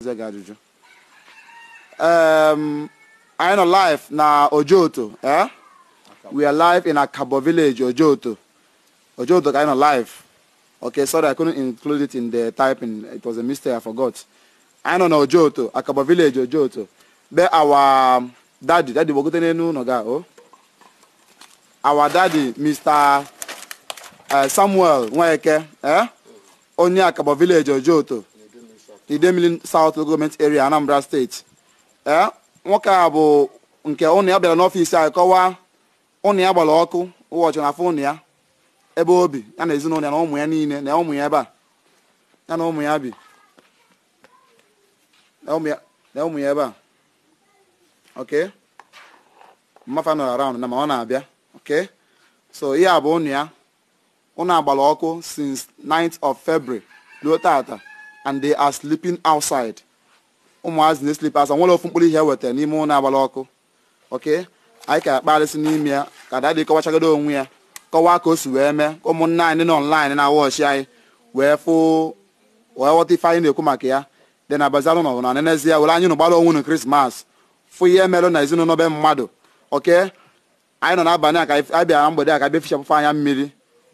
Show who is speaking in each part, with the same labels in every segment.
Speaker 1: ga ajụjụ um, anyị nọ live na ojoto eh? we are live in akabo village ojoto ojoto ka anyị nọ live okay sorry i couldn't include it in the typing it was a mistake i forgot anyị nọ na ojoto akabo village ojoto be our daddy daddy gbogote n'elu ụlọ ga o oh. our daddy mr eh, samuel nweke eh? onye akabo village ojoto Idemili South Local Government Area Anambra steeti. ee eh, nwoke a bụ nke ụnụ ya bịara n'ọfiisi anyị kọwaa ụnụ ya gbara ọkụ ụbọchị na afọ ụnụ ya ebe o bi ya na ezinụlọ ya na ụmụ ya niile na ụmụ ya ebe a ya na ụmụ ya bi na ụmụ ya ebe a ok ọkụ since th of February ruo tata and they are sleeping outside ụmụazị na-eslip asa nwere ofu mkpụrụ ihe wetara n'ime ụlọ agbara ọkụ oke anyị ka akparịsị n'ime ya ka dadị kọwachagoro onwe ya kọwaa ka o si wee mee ụmụnna anyị nọ online na wọchị anyị wee fụ wee ghọta ife anyị na-ekwu maka ya dị na bazalụ nọ na nenezie were anyị nụ gbara onwe nụ krismas fụ ihe merụ na ezinụlọ be mmadụ oke anyị nọ n'abalị a ka anyị bịara mgbede a ka bịa fichapụfe anya mmiri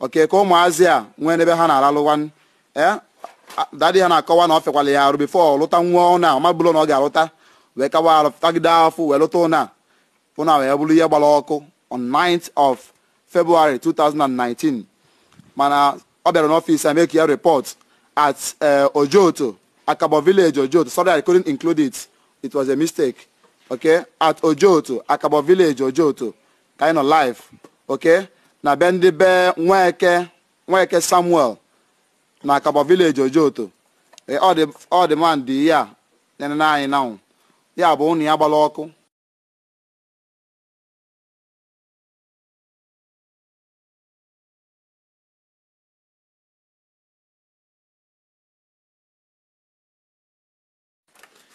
Speaker 1: oke ka ụmụazị a nwee n'ebe ha na-aralụ ee eh? Ah, dadị ha na-akọwa na ọ fekwala ya arụ bifo ọ lụta nwa ọ na ọmabụrụ na ọ ga-alụta wee kawa arụ tagide afọ wee lụta ụna ụna wee bụrụ ihe gbara ọkụ on 9th of February 2019 mana ọ bịara n'ọfịs make ya repọt at eh, Ojoto Akabo village Ojoto sorry I couldn't include it it was a mistake okay at Ojoto Akabo village Ojoto kind of live okay na be ndị be Nweke Nweke Samuel na akaba vileji ojoto e, ọdịmandị ya nyere anyị na ya bụ ụnụ ya gbala ọkụ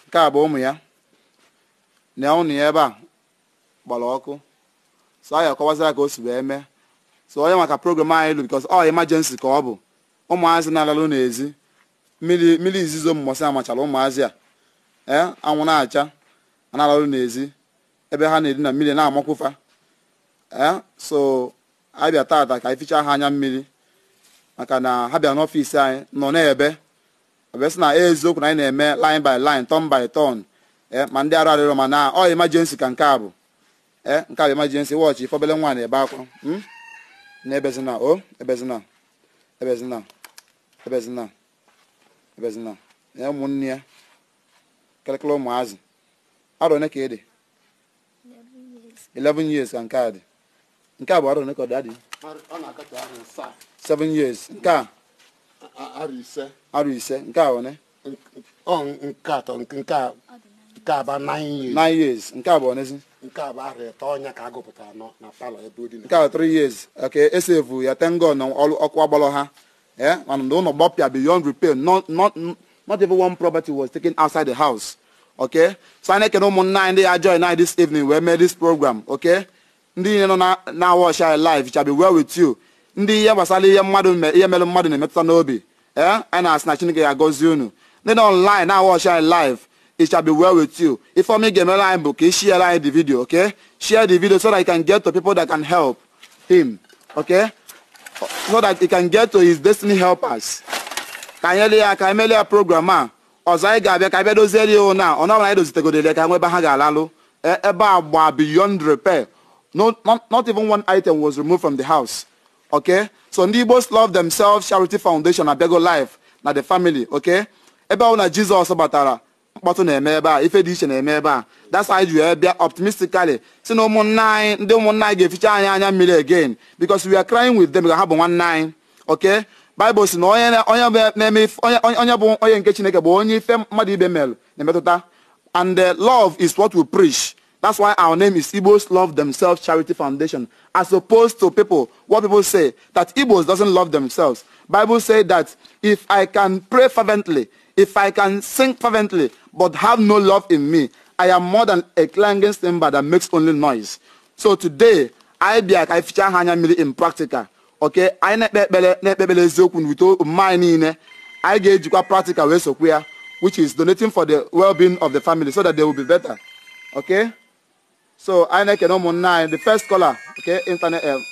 Speaker 1: nke a bụ ụmụ ya na ụnụ ya ebe a gbara ọkụ so anyị akọwazira ka o si wee mee so onye maka program anyị lu because ọ emergency ka ọ bụ ụmụazị na-alalụ n'ezi mmiri izizo mmụsị amachara ụmụazị a ee anwụ na-acha na-alalụ n'ezi ebe ha na-eri na mmiri na-amakwụfa ee so abịa tata ka ificha ha anya mmiri maka na ha bịa n'ọfịs anyị nọ na-ebe sị na eziokwu na anyị na-eme line by line ton by ton ee ma ndị arụ arịrọ ma na ọ emergency ka nke a bụ ee nke a bụ emergency wọchị ifobele nwa na-ebe akwa hmm? na ebezina o ebezina ebezina ebezina ebezina ya ụmụnne ya kelekele ụmụazị arọ one ka ị dị 11 years ka nke a dị nke a bụ arọ one ka ọ dị adị 7 years nke a arọ ise nke a one nke atọ nke a nke a bụ 9 years nke a bụ onezi
Speaker 2: nke a bụ arọ ọnya ka a gụpụtara na palọ ebe o nke a bụ 3
Speaker 1: years ka esevu ya tengo na ọkụ ha Yeah? And the owner bought beyond repair. Not, not, not even one property was taken outside the house. Okay? So I need can almost nine day join night this evening. We made this program. Okay? Ndị ihe nọ na watch our life shall be well with you. Ndị ihe gbasara ihe mmadụ ihe mere mmadụ na-emetụta n'obi. Eh? Anyị na-asị na Chineke ga-agọzi unu. Ndị nọ online Now watch our life. it shall be well with you. If I'm line book, share the video, okay? Share the video so that I can get to people that can help him, okay? so that he can get to his destiny helpers ka anyị ele ya ka anyị melee ya program a ọzọ anyị ga-abịa ka abịa doziere ya na ọ nọbara anyị dozitegodere ka nwebe ha ga-alalụ ebe a gba beyond repair no not, not even one item was removed from the house okay so ndị Igbo love themselves charity foundation abịago life na the family okay ebe ahụ Jesus. Jizọs mkpọtụ na-eme ebe a ife dị iche na-eme ebe a that's why ji wee bịa optimistically si na ụmụnna anyị ndị ụmụnna anyị ga-eficha anyị anya mmiri again because we are crying with them ka ha bụ nwanne anyị okay Bible si na onye bụ onye nke Chineke bụ onye ife mmadụ ibe mere na-emetụta and uh, love is what we preach that's why our name is Igbos Love Themselves Charity Foundation as opposed to people what people say that Igbos doesn't love themselves Bible say that if I can pray fervently if I can sing fervently but have no love in me, I am more than a clanging cymbal that makes only noise. So today, I be a anyị fichaa in practical okay I na na-ekpe ekpere na-ekpe ekpere eziokwu n'ute omume anyị niile anyi practical which is donating for the well-being of the family so that they will be better okay so I na na-ekene ụmụnne the first caller okay internet um,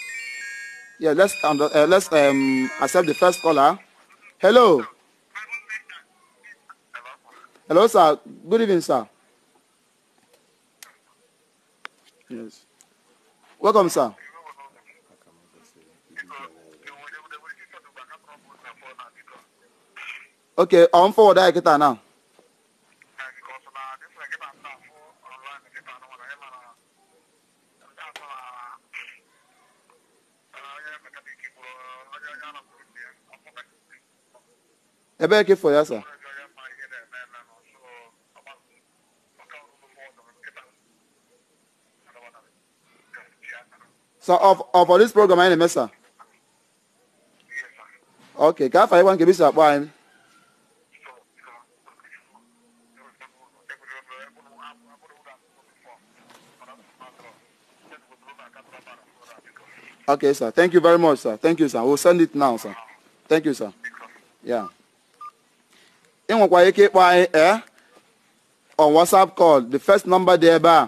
Speaker 1: yeah let's, um, uh, let's um, accept the first caller hello Hello, sir. Good evening, sir. Yes. Welcome, sir. Okay, on forward I get now. Ebe ke for ya sir. So of of this program anyị na-eme Okay, can afọ anyị gwa nke bisi akpọ anyị. Okay, sir. Thank you very much, sir. Thank you, sir. We'll send it now, sir. Thank you, sir. Yeah. Ị nwekwa ike ịkpọ anyị eh on WhatsApp call. The first number there, bar,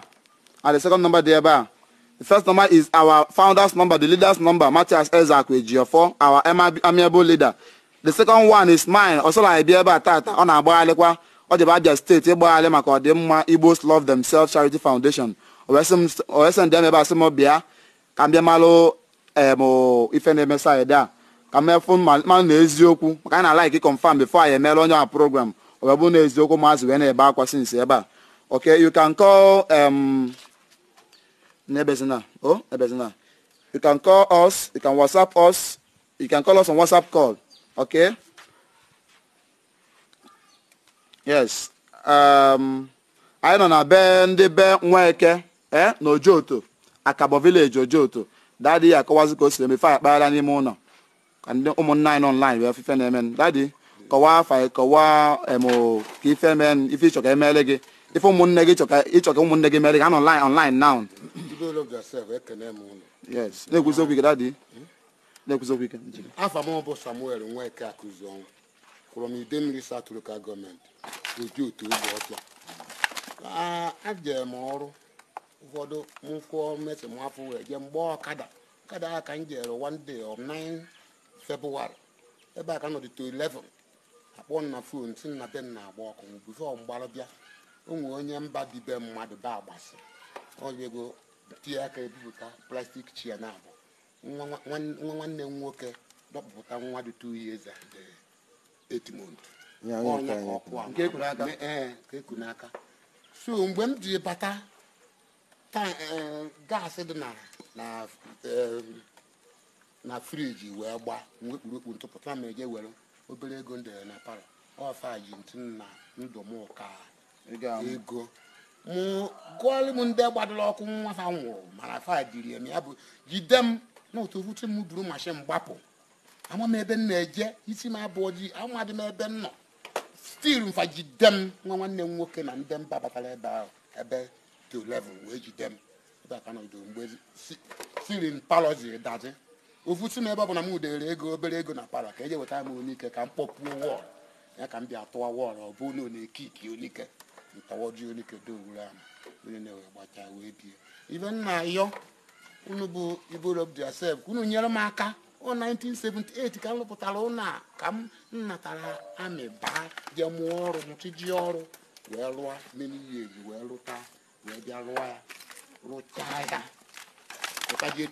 Speaker 1: and the second number there, bar. The first number is our founder's number, the leader's number, Matthias Ezakwe G4, our amiable leader. The second one is mine, Osola Ibieba Tata, ọ na-agbagharịkwa ọ jebe Abia state ịgbagharị maka ọdịmma Igbos Love Themselves Charity Foundation. Owesi ndị ebe asị m bịa ka m bịa malụ ife na-eme saịdị a ka m efu mmanụ maka na-alaiki confirm before anyị emeela onye our program ọ bụ na eziokwu maazị wee na-ebe akwa sinsi ebe a. Okay, you can call um, Nebezina. Oh, Nebezina. You can call us. You can WhatsApp us. You can call us on WhatsApp call. Okay? Yes. Um, anyị nọ na be ndị be Nweke eh, na Ojoto, Akabo village Ojoto. Dadi ya akọwazi ka o siri emefe n'ime ụlọ. Ka ndị ụmụnna anyị nọ online wee ife na-eme. Dadi, kọwaa afa kọwaa emo ka ife eme ife ịchọ ka emele gị. ife ụmụnne gị ịchọ ka ụmụnne gị mere gị anọ online now na-ekwuzi ike dadị na-ekwuzi ike
Speaker 2: afa m bụ samuel nweke akụziọnwụ kwụrụ m ide mmiri satụrụka gọọmenti oji otu ogbe ọcha ajere m ọrụ ụfọdụ mkwụọ mesi m afọ wee jee mgbe ọkada ọkada a ka m one day 9 ebe a ka nọdịte 11 akpọ na fon na be agba ọkụ mgbe bịa ụmụ onye mba dibe mmadụ ba agbasi oyego tie aka ebipụta plastik chia na abụ nwa nwanne m nwoke dọpụta nwa dị two years and eh, eight months ka eh, n'aka so mgbe m ji bata eh, gaasị dị na friji wee gbaa mgbe kpurukpu ntụpụta ma eje were obere ego m na palọ ọfa ji ntụ na ndụ m ụka ego mụ gụọlụ m ndị gbadoro ọkụ nwa ha nwụrụ mana fa diri eme ya bụ jide m na otu ofuche m buru mashin gbapụ ama m ebe m na-eje isi m abụọ ji amadị m ebe m nọ stil mfa jide m nwa nwanne m nwoke na ndị mba batara ebe ahụ ebe to level wee jide m ebe aka siri palọzi dazi ofusi m ebe ọ bụ na m udere ego obere ego na palọ ka eje wetara m onike ka m kpọpuo wọl ya ka m bịa tụwa wọl ọ bụ na onekiki onike onye ntawajuolikedoowuru ahụ onye na-ewe gbachaa wee bie ibe nna yọ unu bụ iborobd sef unu nyere m aka ọ 1978 ka m rụpụtara ụlọ a ka m natara amị baa jee mụọ ọrụ mụchiji ọrụ wee rụọ meniye eji wee lụta wee bịa lụọ ya rụchaa ya ụtaje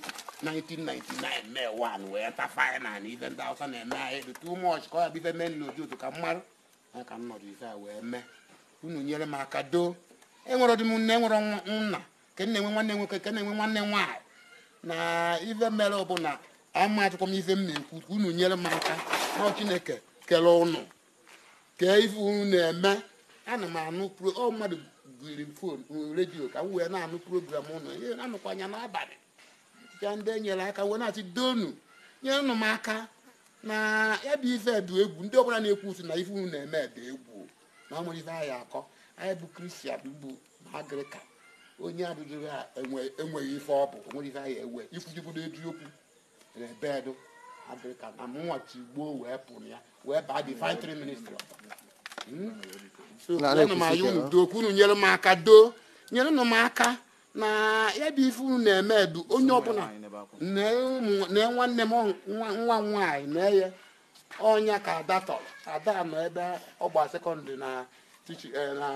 Speaker 2: 1999 mee 1 wee tafa na ibe ndị awụsa na-eme ahịa dị too much ka ọ ya bụ ife mee n'oji otu ka mmarụ ya ka m nọdụ ife a wee mee unu nyere m aka doo enwere ọdịm nne enwere nna ke na-enwe nwanne nwoke ke na-enwe nwanne nwaanyị na ife mere bụla ama achọkwa m ife m na-ekwu unu nyere m aka na chineke kere ụnụ kee ife unu na-eme ana m anụ ọ mmadụ giri m fon redio ka m wee na-anụ program ụnụ anụkwa anya n'abalị aa ndị enyere aka wee na-asị donu nyere nụ m aka na ebe ife dị egwu ndị ọbụla na-ekwu usi na ife unu na-eme dị egwu na ọ nwere akọ anyị bụ kristian bụ agrịka onye abụghị enweghị ife ọ bụ onwere ife anyị ewe ikwujibudo eziokwu rebedu na mụnwa tigbuo wee pụrụ ya wee baa divinitry ministry hmm? unu unu nyere m aka doo nyere m aka na ya bụ ife unu na-eme onye ọbụla na nwanne m nwa nwaanyị na-eye ọnya ka ada tọrọ ada nọ ebe ọgba sekọndịrị eh, na na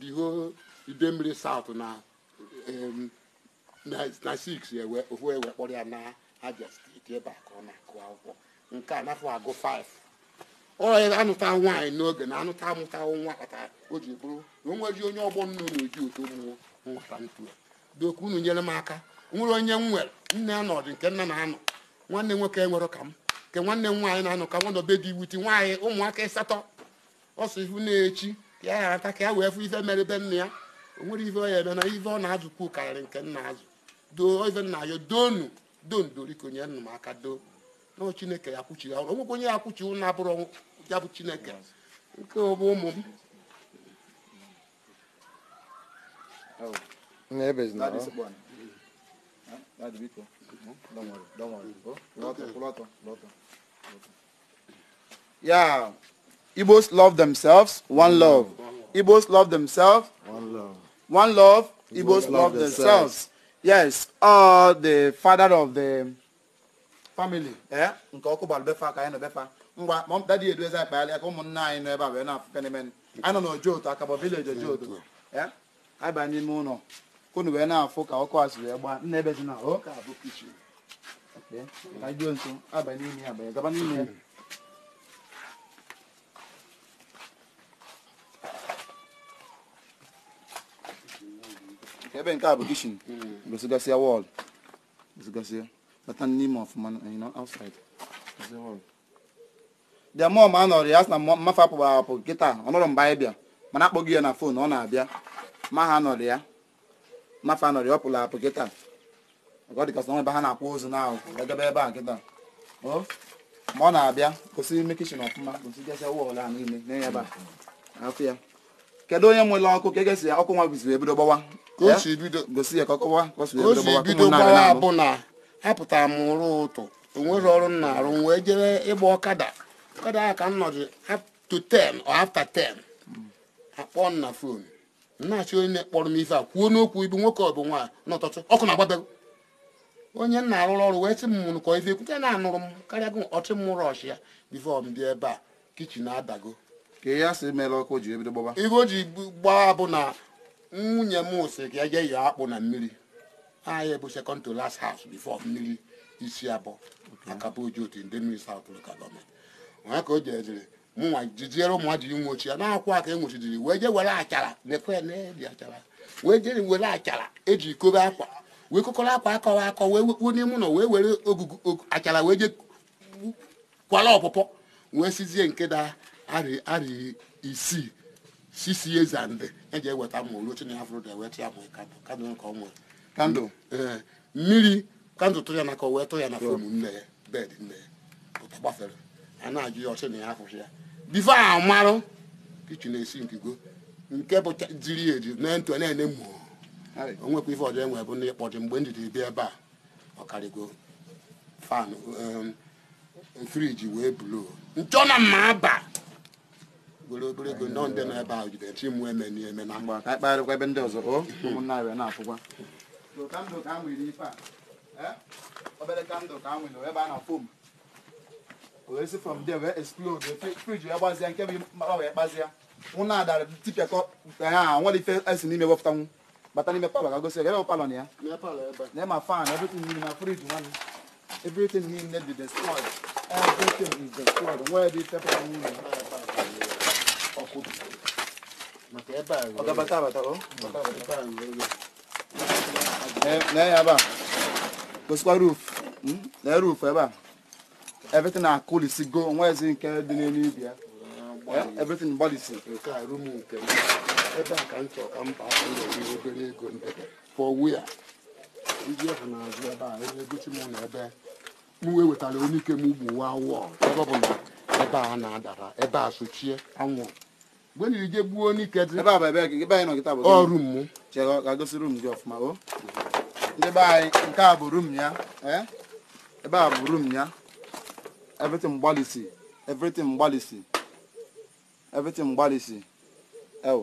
Speaker 2: diho idemmiri saut na na 6 ewe ofu ewe kpọrọ ya na aja steeti ebe a ka ọ na-akụ akwụkwọ nke a nafọ agụ 5 ọya anụta nwaanyị n'oge na anụta amụta nwa kpata o ji bụrụ na o nweghị onye ọgbọ nnu na-eji otu ụmụ nwata ntu doku unu nyere m aka nwere onye m nwere nne anọdụ nke nna na anọ nwanne nwoke nwere ka m nke nwanne m nwaanyị na anụ ka nwa nọbe dị iwuti nwaanyị ụmụaka ịsatọ ọsọ ihu na-echi ya ya ata ka ya wee fụ ife mere be nna ya o nwere ife ọ ya eme na ife ọ na-azụkwu karịrị nke nna azụ doo ife nna ya doonu dondoriko nye nna m aka doo na chineke ya kwuchi ya onwekwa onye ya kwuchi ụnụ abụrụ ya bụ chineke nke ọbụ ụmụ m
Speaker 1: Oh. Nebezna. Dadi se bwana. Dadi Don't worry, don't worry. Go. Okay. Kulato, Kulato, Kulato. Yeah. Igbos love themselves, one love. Igbos love themselves, one love. One love, Igbos love, themselves. Yes, uh, the father of the family. Eh? edu eze akpaghalị aka ụmụnna anyị nọ ebe a wee na-afụfe n'ime nọ n'ojo otu akabọ vileji ojo otu. Eh? Anyị n'ime ụlọ. Kunu wee na-afụ ka ọkụ a si wee ebe dị na ọ oh, ka abụ kichin. ka nso ya abanye gaba n'ime ya ebe nke a bụ kishin gosigasịa wọl gosigasịa bata n'ime ọfụma ma a nọrọ ya na mmafe apụ ọ mgbe anyị bịa mana akpọghị ya na fon ọ na-abịa ma ha nọrọ ya mmafe anọrọ ya ọ pụrụ apụ kịta ọ dịgasị ebe ha na-akwa ozu na agaba ebe a nkịta ma ọ na-abịa gosi ime kichin ọfụma gosi ụwa a niile na-enye ebe ya kedu onye nwere ọkụ ka egesi ya ọkụ nwa ebido gbawa gosi ya ka gbawa bụ
Speaker 2: na apụtara m ụtụ onwere ọrụ m na wee jere ịgba ọkada ọkada ahụ ka m nọdụ to after ten na fon na-achọ onye m ife a kwuo n'okwu ibu nwoke bụ nwaanyị ọkụ onye nna arụrụ ọrụ wee sị m mụrụ kọ ife ekwute na-anụrụ m karịa gị ọtị m rọsh ya bifo m bịa ebe a kichin adago ka ya sị mere ọkụ ji ebido gbaba ihe o ji gbaa bụ na nwunye m sị ka eje yọọ akpụ na mmiri anyị bụ second to last house bifo mmiri isi abụọ akaboji otu ndị mmiri saut ka gọọmenti onye ka o ji ejere mụnwa jijiere ụmụ ji nwochi ya na-akwụ aka enwochijiri wee je were achara lekwe na-eji achara wee jere were achara eji kobe akwa wee kọkọrọ akwa akọwa akọ wee wekpuo n'ime ụlọ wee were ogugu achara wee je kwara ọpụpọ wee sizie nke da arị arị isii sisi ezande eji eweta mma oluchi na ya fụrụ da e eweta ya ma kandụl nke ọnwa kandụl mmiri kandụl tụ ya n'aka wee tụ ya na fom nne ya bed nne ya ụta gbafere a na-ajụ ya ọchị na ya afụchi ya bifo a marụ kichin esi nkigo nke bụ jiri eji na ntụ na-ene mmụọ onwekwa ife ọjọọ enwe bụ na ịkpọji mgbe ndidi jiri bịa ebe a ọkarịgo fan um, friji wee bulu njọ na mma aba were obere ego nọ ndị nọ ebe a jide chi mwe eme na eme na
Speaker 1: mgbe ka kparịkwa ebe ndị ọzọ o ụmụnna abịa na-afụkwa obere kandụl ka m nwere ebe a na-afụ m wee si from there wee explode friji wee gbazia nke bụ mkpa wee kpazia nwụ na-adara tipịakọ ha nwere ife esi n'ime wepụtanwu bata n'ime palọ ka gosi ebe palọ na ya na ma fan everything niile na fridge nwanne everything niile dị destroyed everything is destroyed nwee ebe itepụta niile ọkụ na ya ebe a gosikwa na ebe a everything na-akụlisi go nwezi nke dị n'elu ibi everything gbalisi nke a rumu nke ebe a
Speaker 2: ka m chọrọ ka mba na-eri obere ego ndebe pụọ ya ndị ahụ na-azụ ebe a ebe gosi m na ebe m wee wetara onye ike m ugbu wa wụọ ebe ọ bụ na
Speaker 1: ebe a na-adara ebe a sochie anwụ mgbe nyiri je gbuo onye ike dị ọrụ m gosi gị ọfụma o. ndị be anyị nke a bụ rum ya e. ebe a bụ rum ya everything gbalịsi everything gbalịsi everything gbalịsi ewu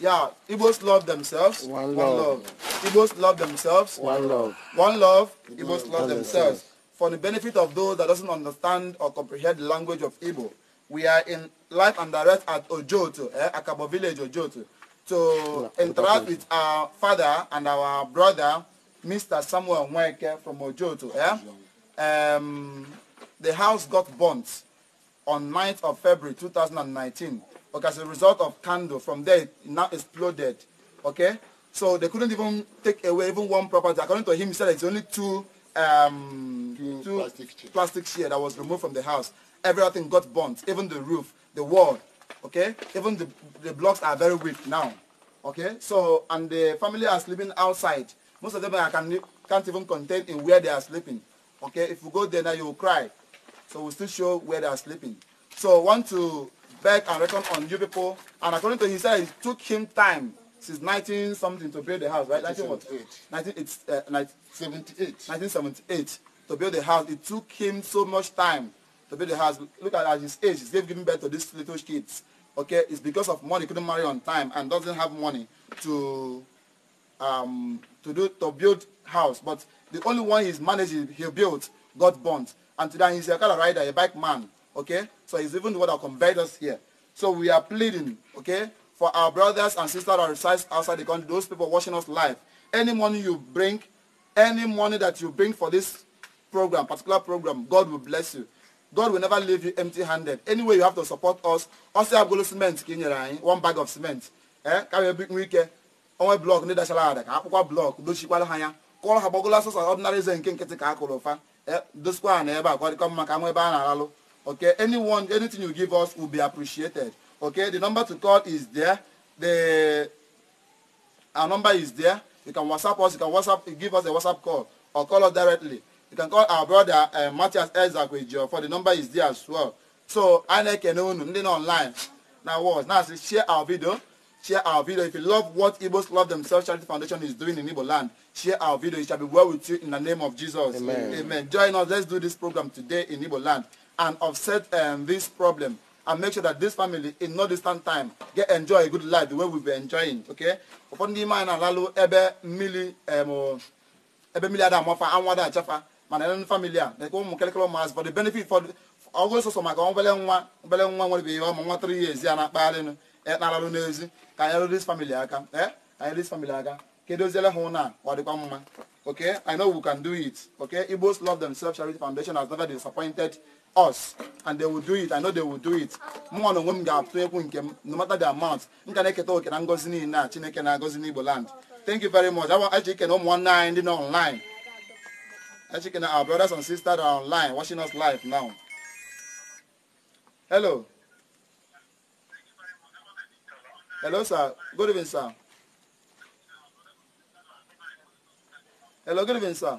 Speaker 1: Yeah, Igbos love themselves. One, love. love. Igbos love themselves. One love. One love. Igbos love themselves. For the benefit of those that doesn't understand or comprehend the language of Igbo, we are in live and direct at Ojoto, eh, Akabo village, Ojoto, to interact with our father and our brother, Mr. Samuel Mweke from Ojoto. Eh? Um, the house got burnt on 9th of February 2019 okay, as a result of candle. From there, it now exploded. Okay? So they couldn't even take away even one property. According to him, he said it's only two, um, two, two plastic, chair. that was removed from the house. Everything got burnt, even the roof, the wall. Okay? Even the, the blocks are very weak now. Okay? So, and the family are sleeping outside. Most of them I can, can't even contain in where they are sleeping. Okay? If you go there now, you will cry. So we we'll still show where they are sleeping. So want to beg and reckon on you people. And according to he said, it took him time since 19 something to build the house, right? 1978. 1978. 1978 to build the house. It took him so much time to build the house. Look at, at his age. He's giving birth to these little kids. Okay, it's because of money. couldn't marry on time and doesn't have money to um to do to build house. But the only one he's managed he built got burnt. And today he's a car rider, a bike man. Okay, So it's even what will convert us here. So we are pleading, okay, for our brothers and sisters that reside outside the country, those people watching us live. Any money you bring, any money that you bring for this program, particular program, God will bless you. God will never leave you empty-handed. Anyway, you have to support us. Also, have got cement, one bag of cement. Eh? Carry a big weekend. Onwe blọk ndị dachara ada ka akwụkwọ blọk dochikwara ha ya kụọrọ ha gbagola sọsọ ọdịnarị eze nke nkịtị ka a kụrụ ụfa dosikwa ha na ebe a kọrịkọ mma ka Okay, anyone, anything you give us will be appreciated. Okay, the number to call is there. The our number is there. You can WhatsApp us. You can WhatsApp give us a WhatsApp call or call us directly. You can call our brother uh, Matthias you. for the number is there as well. So I like nothing online. Now what? Now share our video. Share our video. If you love what Igbos Love Themselves Charity Foundation is doing in Igbo land, share our video. It shall be well with you in the name of Jesus. Amen. Amen. Join us. Let's do this program today in Igbo land. and offset um, this problem and make sure that this family in no distant time get enjoy a good life the way we be enjoying okay ụfọdụ n'ime anyị na-alalụ ebe mmiri um, ebe mmiri ada amafa anwụ ada achafa mana ele famili a na-ekwe ụmụ kelekele ụmụazị fọdụ benefit fọdụ ọgụ sọsọ maka obele nwa obele nwa nwere ihe ọmụ nwa tụrụ ihe ezi a na-akpagharị na alalụ n'ezi ka anyị rụrụ famili aka ee eh, anyị rụrụ famili aka kedu oziele ha ụna ọ dịkwa mma okay i know we can do it okay igbos love themselves charity foundation has never disappointed us and they will do it i know they will do it mụnwa na onwe m ga-atụ ekwu nke m no matter the amount m ka na-eketa oke na ngọzi niile a chineke na-agọzi n'igbo land thank you very much eche ike na ụmụ nwanne anyị ndị nọ online eche ike our brothers and sisters are online watching us live now hello hello sir good evening sir hello good evening sir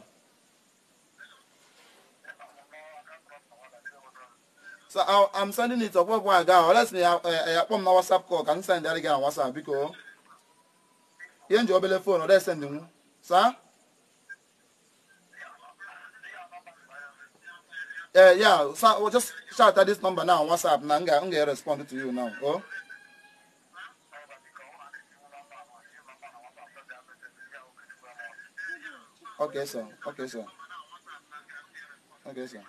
Speaker 1: So I, I'm sending it up. What boy down? Let's me. I put my WhatsApp call. Can you send that again on WhatsApp? Because you enjoy the phone. Or they send them. Sir. Uh, yeah, yeah. So well, just shout at this number now on WhatsApp. Now I'm gonna respond to you now. Oh. Okay, sir. Okay, sir. Okay, sir.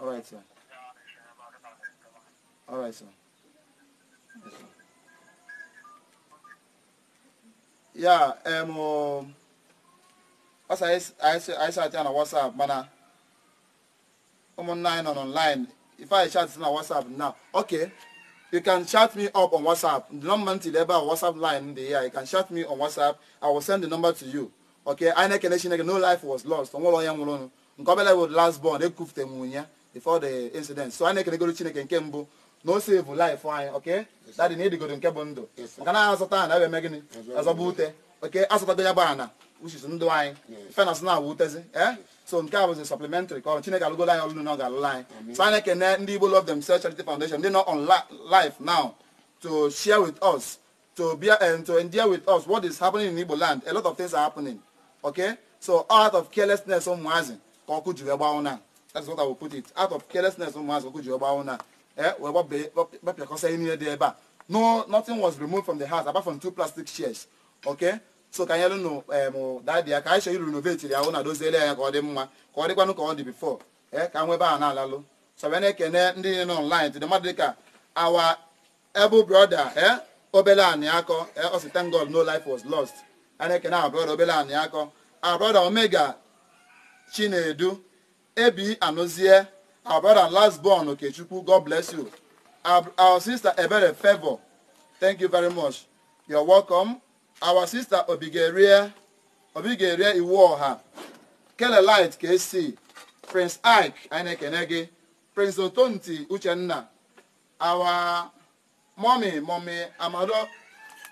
Speaker 1: All right, sir. All right, sir. Yes, sir. Yeah, um, as I I say, I chat on WhatsApp, man. I'm online on online. If I chat on WhatsApp now, okay. You can chat me up on WhatsApp. The number to the WhatsApp line there. You can chat me on WhatsApp. I will send the number to you. Okay. I know connection. No life was lost. I'm all I am alone. Nkobele was last born. They cooked them before the incident. So I know can go to Chineke and na o sevu life anyị ok dadị na ịdịgodo nke bụ ndụ nke na azụta ana ebe eme gịnị azọba ute oke asụtago ya bụ ana uchizi ndụ anyị fenas na awa utezi e so nke a bụzi supplementary ka ọrụ chineke alụgolo anyị ọlụlụ na ọ ga-alụlụ anyị so anyị ekene ndị igbo love themselves charity foundation ndị nọ on life now to share with us to be and eh, to endure with us what is happening in igbo land a lot of things are happening okay so out of carelessness ụmụazị ka ọkụ jiri gbawụ na that's what i will put it out of carelessness ụmụazị ọkụ jiri gbawụ na gbapịakọsa ihe niile dị ebe a no nothing was removed from the house apart from two plastic chairs okay so ka anyị lụnụ em dadi ya ka anyị chọrọ irenovate ya ahụ na doziele ya ka ọ dị mma ka ọ dịkwanụ ka ọ dị before Ka eh, ka nwebe a na-alalụ so wee na-ekene ndị niile nọ online tụdị mmadụ dịka our able broda ee obele anyị akọ ee ọ sị thank God no life was lost a na-ekene our broda obele anyị akọ our brother omega chinedu ebi anụzie Our brother last born, okay, Chukwu, God bless you. Our, our sister Ebere Favor, thank you very much. You're welcome. Our sister Obigeria, Obigeria Iwoha, Light, KC, Prince Ike Ainekenege, Prince Otonti Uchenna, our mommy, mommy Amado,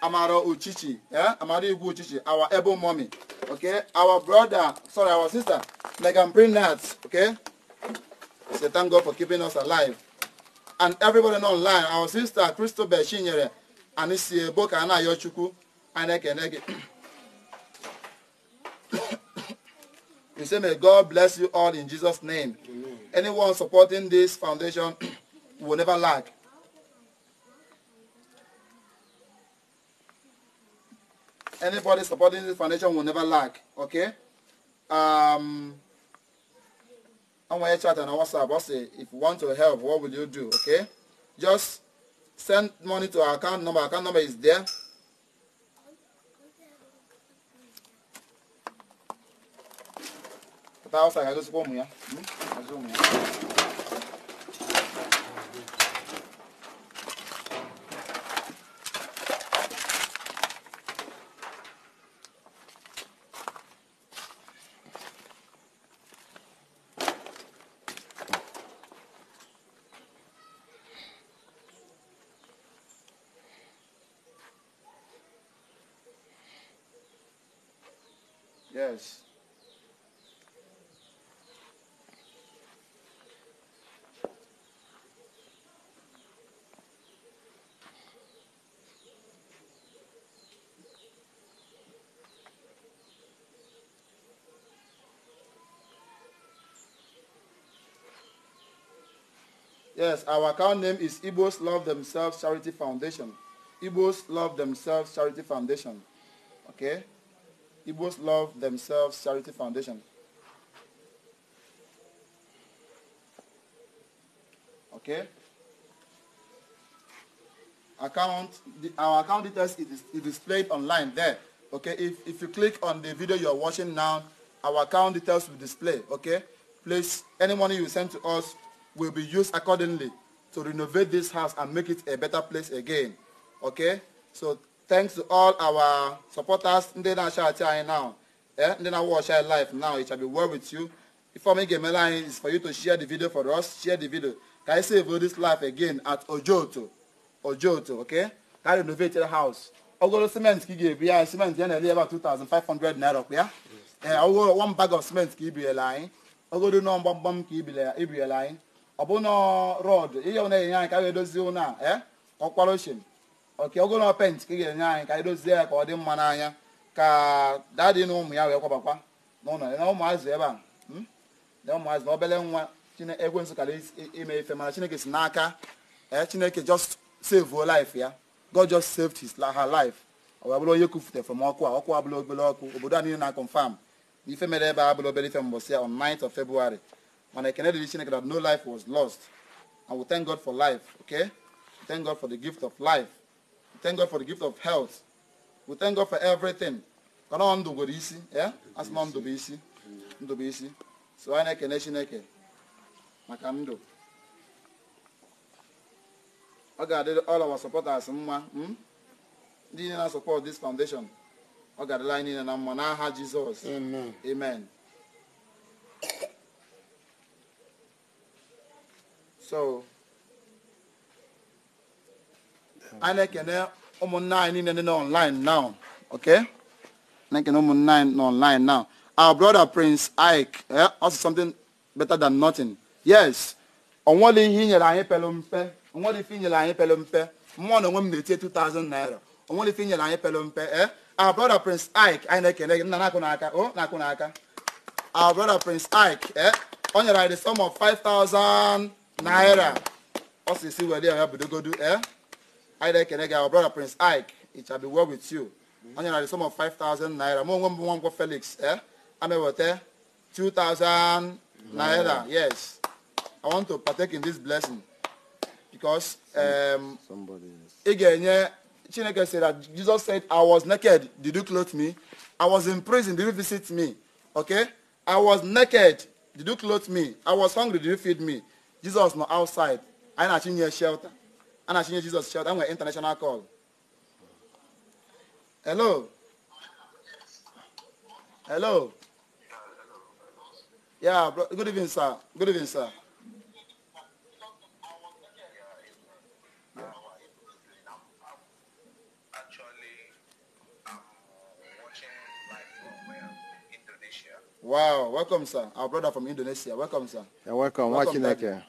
Speaker 1: Amaro Uchichi, yeah? Amado Igu Uchichi, our able mommy, okay? Our brother, sorry, our sister, Megan Brinat, okay? say thank God for keeping us alive. And everybody online, our sister Christopher Shinyere, and this book and Ayochuku, and Ekenege. We say may God bless you all in Jesus' name. Amen. Anyone supporting this foundation will never lack. Anybody supporting this foundation will never lack. Okay? Um, on my chat and on WhatsApp. I say, if you want to help, what will you do? Okay? Just send money to our account number. Account number is there. Tá, ó, sai, eu sou como, né? Hum? Eu sou como, Yes, our account name is Igbos Love Themselves Charity Foundation. Igbos Love Themselves Charity Foundation. Okay? Igbos Love Themselves Charity Foundation. Okay? Account, the, our account details is, is displayed online there. Okay, if, if you click on the video you're watching now, our account details will display. Okay, please, any money you send to us, will be used accordingly to renovate this house and make it a better place again. Okay? So thanks to all our supporters ndị na-acha acha now eh ndị na-watch life now it shall be well with you ifeọm ị ga-emela anyị is for you to share the video for us share the video Can I save this life again at ojoto ojoto okay ka renovate house ogolo cement ka ị ga-ebu cement ya about ele ebe a 2500 naira Yeah. ya eh, ee one bag of cement ka ibiriela anyị ogolo nọ mgbamgbam ka a line. ọbụna rọd ihe na-enye anyị ka a ga-edozi a e eh? ọkwara oche oke ogolo pent ka ị ga-enye anyị ka anyị dozie ya ka ọ dị mma n'anya ka dadị na ụmụ ya wee kwabakwa n'ụlọ na ụmụazị ebe a hmm? na ụmụazị na obere nwa ekwensu kara ime ife mana chineke si n'aka ee eh? chineke just save life ya god just saved his her life ọ wee bụrụ onye kwufute from ọkụ a ọkụ abụla obere ọkụ obodo a niile na confam ife mere ebe a bụrụ obere ife mbọsị ya on 9th of february And I cannot Chineke that no life was lost. And we thank God for life, okay? We thank God for the gift of life. We thank God for the gift of health. We thank God for everything. Kana ọ ndụ gwere isi, ya? Asị ma ndụ bụ isi. To be easy. So I na na-ekene Chineke maka ndụ. Ọ ga-adị all our supporters mma. Hmm? Ndị niile na-support this foundation. Ọ ga-adịla anyị niile na mma n'aha Jizọs. Amen. Amen. so anyị na-ekene eh, ụmụnna anyị niile nọ online now okay na-ekene ụmụnna anyị n'online online now our brother prince ike eh, also something better than nothing yes onwere ihe inyere anyị pelu mpe onwere ife inyere anyị pelu mpe mmụọ na onwe m na-etie 2000 naira onwere ife inyere anyị pelu mpe eh our brother prince ike anyị na-ekene eh, gị nna na-akụ n'aka o oh, na-akụ n'aka our brother prince ike eh o nyere anyị the sum of 5000 naira ọ sị si were ya go to anyị eh? na-ekene get our brother prince ike it shall be well with you you mm-hmm. na the sum of 5000 naira m onwe Felix, eh? i felix ee eh? ameweta 2000 mm-hmm. naira yes i want to partake in this blessing because um, Again, yeah. chineke said that jesus said i was naked did you clothe me i was in prison did you visit me okay i was naked did you clothe me i was hungry did you feed me Jesus nọ outside I na na-achịnye shelter a na-achịnye Jesus' shelter nwere international call hello hello yeah good evening sir good evening sir Wow, welcome, sir. Our brother from Indonesia. Welcome, sir. You're welcome. welcome Watching that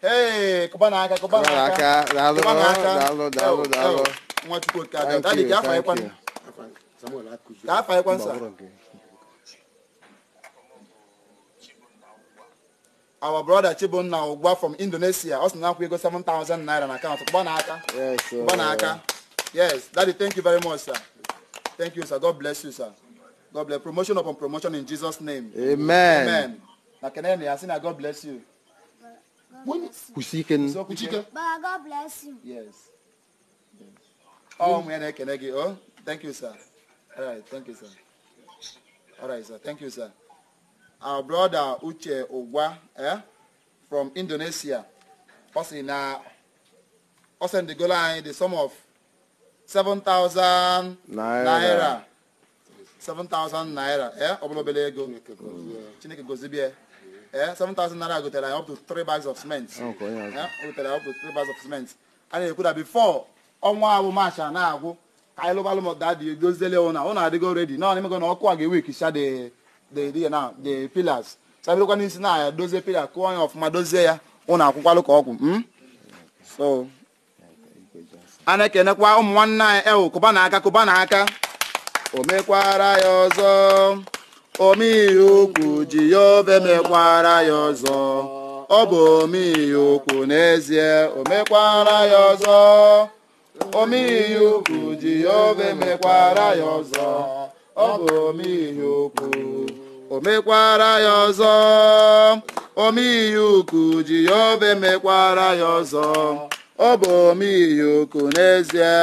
Speaker 1: Hey, kụbana aka kụbana aka kụbana aka daalụ daalụ Nwachukwu oke our brother Chibunna ugba from Indonesia ọ sị na akwụ ego 7000 naira na akaụntụ kụbana aka kụbana aka yes daddy thank you very much sir thank you sir god bless you sir god bless promotion upon promotion in jesus name amen. Makenemi, I said, God bless you. When Kusiken. Kusiken.
Speaker 2: God bless
Speaker 1: you. Yes. Oh, yes. Oh, Mwene Kenegi. Oh, thank you, sir. All right, thank you, sir. All right, sir. Thank you, sir. Our brother Uche Ogwa eh, from Indonesia. Also in uh, send the goal line, the sum of 7,000
Speaker 2: naira.
Speaker 1: 7,000 naira. Eh? Obolo belego. Chineke gozibi. 7,000 eh, naira gotere ya up to three bags of cement o gotere ya up to bags of cement a na-ekwu na before ọnwa abụ march na-agwụ ka anyị lụbalụ m dadị doziele ụna ụna adịgo redi na ọnịmego na ọkụ a ga-ewek the pillars sabịrịkwa n'isi na ya dozie pillar kụọ ya ọfụma dozie ya ụna akwụkwalụ ka ọgwụ so na-ekenekwa ụmụ nwanne anyị ewu kụba na aka ya ọzọ omeihe ukwu ji ya obe mekwara ya ọzọ ọ bụ omeihe ukwu n'ezie Omekwara ya ọzọ omeihe ukwu ji ya obe mekwara ya ọzọ ọ bụ omeihe ukwu o mekwara ya ọzọ omeihe ukwu ji ya obe mekwara ya ọzọ ọ bụ omeihe ukwu n'ezie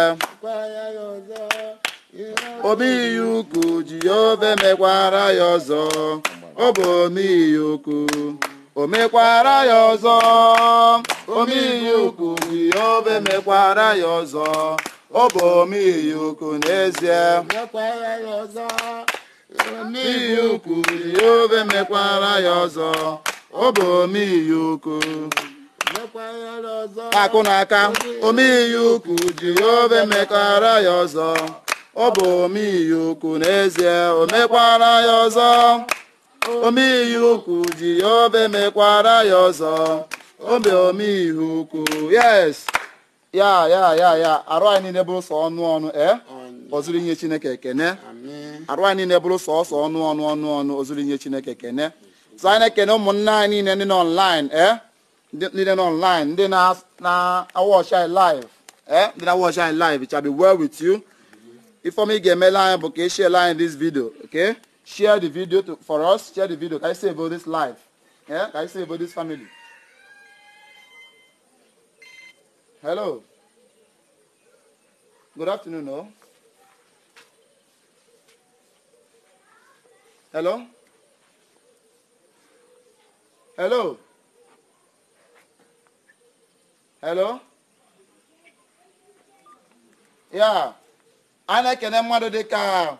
Speaker 1: omeiyi ukwu jehova emekwara ya ọzọ ọ bụ omeiyi ukwu o mekwara ya ọzọ omeiyi ukwu jehova emekwara ya ọzọ ọ bụ omeiyi ukwu n'ezie omeiyi ukwu jehova emekwara ya ọzọ ọ bụ omeiyi ukwu akụ na aka omeiyi ukwu jehova emekwara ya ọzọ ọ bụ omeiyi ukwu n'ezie o mekwara ya ọzọ omeiyi ukwu ji ya obe mekwara ya ọzọ obe omeiyi ukwu yes ya ya ya ya arụ anyị niile bụrụ sọ ọnụ ọnụ e ozuru inye chineke ekene arụ anyị niile bụrụ sọ ọsọ ọnụ ọnụ ọnụ ọnụ ozuru inye chineke ekene so anyị na-ekene ụmụnna anyị niile ndị nọ online e niile nọ ndị na-awọchi anyị live e ndị na-awọchi anyị live it shall be well with you Ifeoma Igemeline Bukeshe line in this video. Okay? Share the video to, for us. Share the video. Can I say about this life? Yeah? Can I say about this family? Hello. Good afternoon, no? Hello? Hello? Hello? Yeah. a na-ekene mmadụ dịka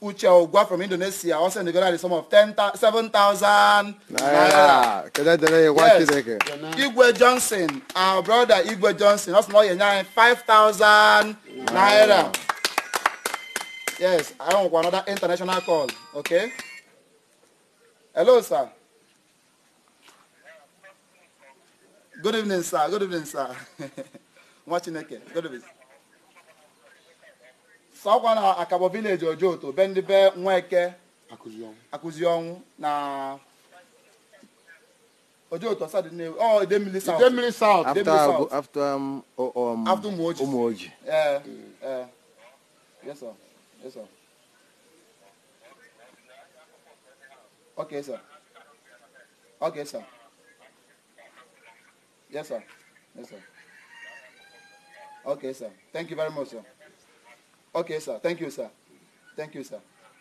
Speaker 1: uche ụgwa from indonesia ọ sị na the sum of 7,000
Speaker 2: naira
Speaker 1: igwe johnson our brother igwe johnson ọ sị na ọ ga-enye anyị 5,000 naira yes I want another international call okay hello sir good evening sir good evening sir nwa chineke good evening ka na akabọ vileji ojoto be ndị be nweke akụzi ọnwụ na ojoto sadine ọ oh, idemili south after after um, um after umuoji umuoji eh yes sir yes sir okay sir okay sir yes sir yes sir okay sir thank you very much sir Okay, sir. Thank you, sir. Thank you, sir.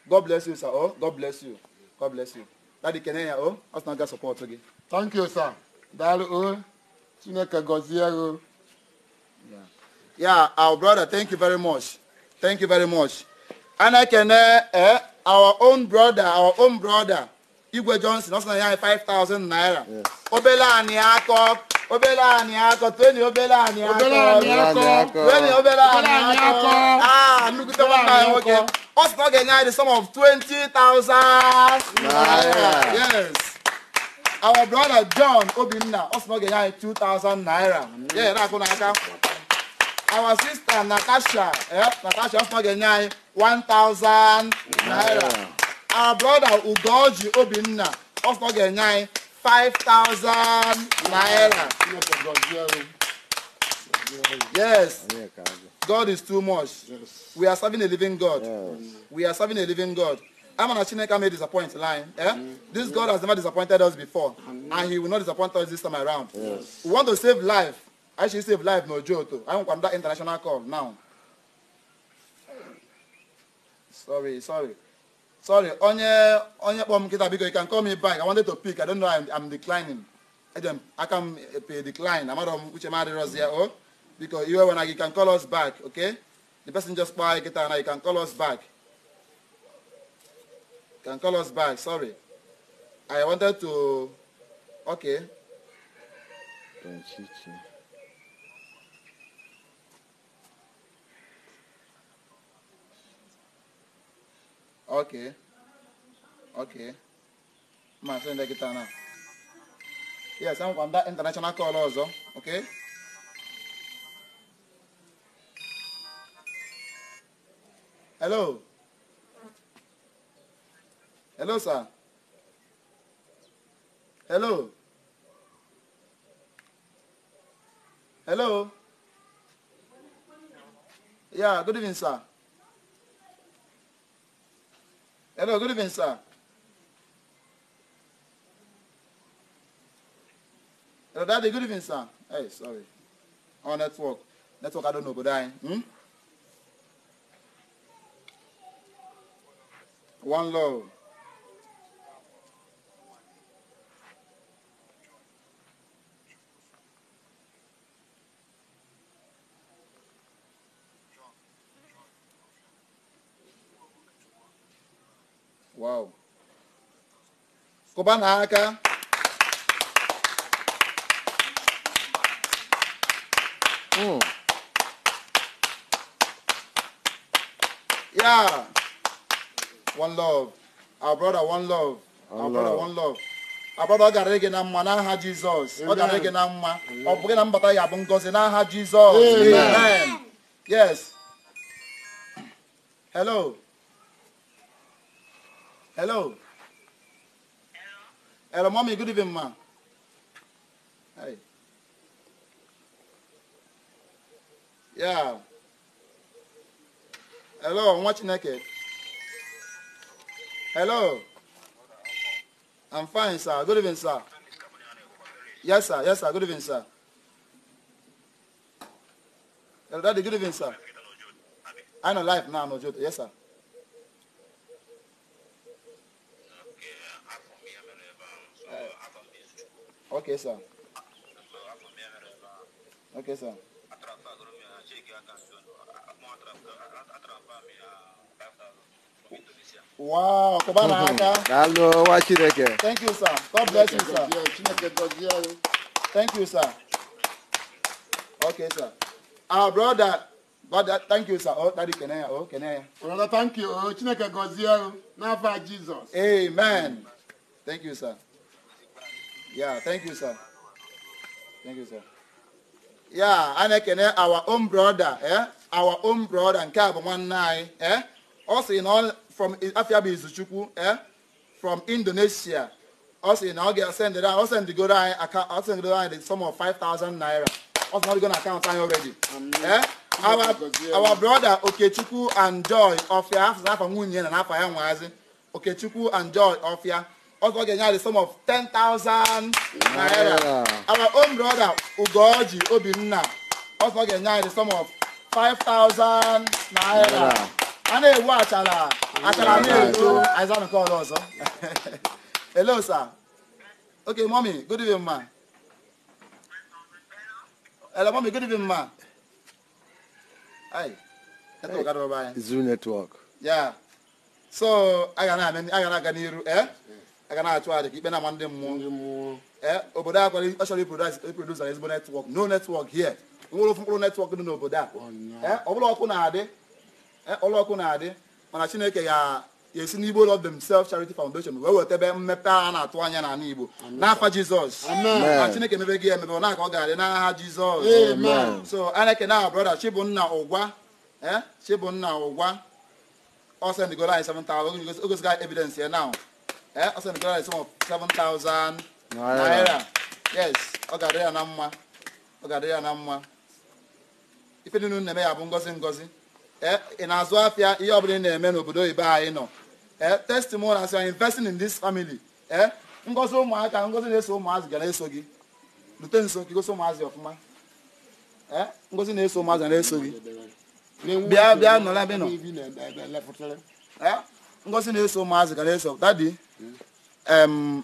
Speaker 1: God bless you, sir. Oh, God bless you. God bless you. Daddy Kenya, oh, us not support again. Thank you, sir. Dalu, oh, Chineke oh. Yeah. Yeah, our brother, thank you very much. Thank you very much. And I can, uh, uh, our own brother, our own brother, Igwe Johnson, also 5,000 naira. Yes. Obela Aniakok. obere anyị akọ tweni obere anyị akọ tweni obere anyị akọ aa nnukwu nwata anyị nwoke ọ sị na ọ ga-enye anyị the sum of 20,000 naira yes our brother John Obinna ọ sị na ọ ga-enye anyị 2,000 naira yeah na-akụ n'aka our sister Natasha Natasha ọ sị na ọ ga-enye anyị 1,000 naira our brother Ugoji Obinna ọ sị na ọ ga-enye anyị 5,000 naira. Yes. God is too much. Yes. We are serving a living God. Yes. We are serving a living God. I'm an may disappoint line. Eh? Mm-hmm. This God has never disappointed us before. And he will not disappoint us this time around. Yes. We want to save life. I should save life, no joke. I want that international call now. Sorry, sorry. sorry onye onye kpọọ m nkịta biko you can call me back i wanted to pick i don't know i'm, declining ejem aka m epe eh, decline amarọ m uche m adịrọzi ya o biko iwe wena gị can call us back okay the person just kpọọ anyị kịta na you can call us back can call us back sorry i wanted to okay Okay. Okay. Ma sị kita kịta na. Yes, enwekwa nda international call ọzọ. Okay. Hello. Hello, sir. Hello. Hello. Yeah, good evening, sir. Hello, good evening, sir. Hello, daddy, good evening, sir. Hey, sorry. On oh, network. Network, I don't know, but I. Hmm? One love. kụba na aka hmm. yeah one love our brother one love our brother one love our brother ọ gara gị na mma n'aha jizọs ọ gara gị na mma ọ bụ gị na mbata ya bụ ngọzi n'aha jizọs yes hello hello Hello, mommy. Good evening, ma. Hey. Yeah. Hello, I'm watching naked. Hello. I'm fine, sir. Good evening, sir. Yes, sir. Yes, sir. Good evening, sir. Hello, daddy. Good evening, sir. I know life now, no joke. Yes, sir. Okay, sir. Okay, sir. Wow, come on. aka. Daalụ nwa Chineke. Thank you, sir. God bless you, sir. Thank you, sir. Okay, sir. Our brother, brother, thank you, sir. Oh, daddy kene ya, oh, kene ya. Brother, thank you. Oh, Chineke gọzie anyị oh, n'afọ Jizọs. Amen. Thank you, sir. Yeah, thank you, sir. Thank you, sir. Yeah, a na our own brother, eh? our own brother nke a bụ nwanne anyị eh? ọ sị na from afia bụ izuchukwu eh? from Indonesia ọ sị na ọ ga-esendịrị anyị ọ sendịgoro anyị ọ sendịgoro anyị the sum of five thousand naira ọ sị na ọ dịgo na akaụntụ anyị already eh? our, our brother Okechukwu and Joy Ofia afọ n'afọ nwunye na n'afọ ya nwaazi Okechukwu and Joy Ofia Ogo Genya the sum of 10,000 naira. Our own brother, Ugoji Obinna, Ogo Genya the sum of 5,000 naira. A na-ewu achara
Speaker 2: achara na-eto
Speaker 1: aịza nke ọrụ ọzọ. Hello, sir. Okay, mommy, good evening, ma. Hello, mommy, good evening, ma. Hi. Network, hey. Zoom network. Yeah. So, I ga na-aga n'iru, eh? aga na-achụ aja ka ikpe na-ama ndị mmụọ obodo a kwara ọ chọrọ iprodusa ezigbo netwọk no netwọk here nwere ofu mkpụrụ netwọk dị n'obodo a oh, eh, ọbụla ọkụ na-adị eh, ọkụ na-adị mana chineke ga-esi n'igbo love self charity foundation wee weta ebe mmepe a na-atụ anya n'ala igbo n'afa jizọs na chineke emebe gị emebe na ka ọ ga-adị n'aha jizọs so a na-ekene aha brọda chibụnna ụgwa chibụnna eh, ụgwa ọ sendịgoro anyị 7,000 ogosigo evidence ya now ee ọ sị na gara the sum of 7000 naira yes ọ ga-adị ya na mma ọ ga-adị ya na mma ife niile na-eme ya bụ ngozi ngozi ee ị na-azụ afịa ihe ọbụla ị na-eme n'obodo oyibo anyị nọ ee testimony as you are investing in this family ee ngozi ụmụaka ngozi na-eso ụmụazị ga na-eso gị lute nso ka gosi ụmụazị ọfụma ee ngozi na-eso ụmụazị na-eso gị bịa bịa nọrọ ebe nọ ngozi na-eso ụmụazị ga na-eso dadi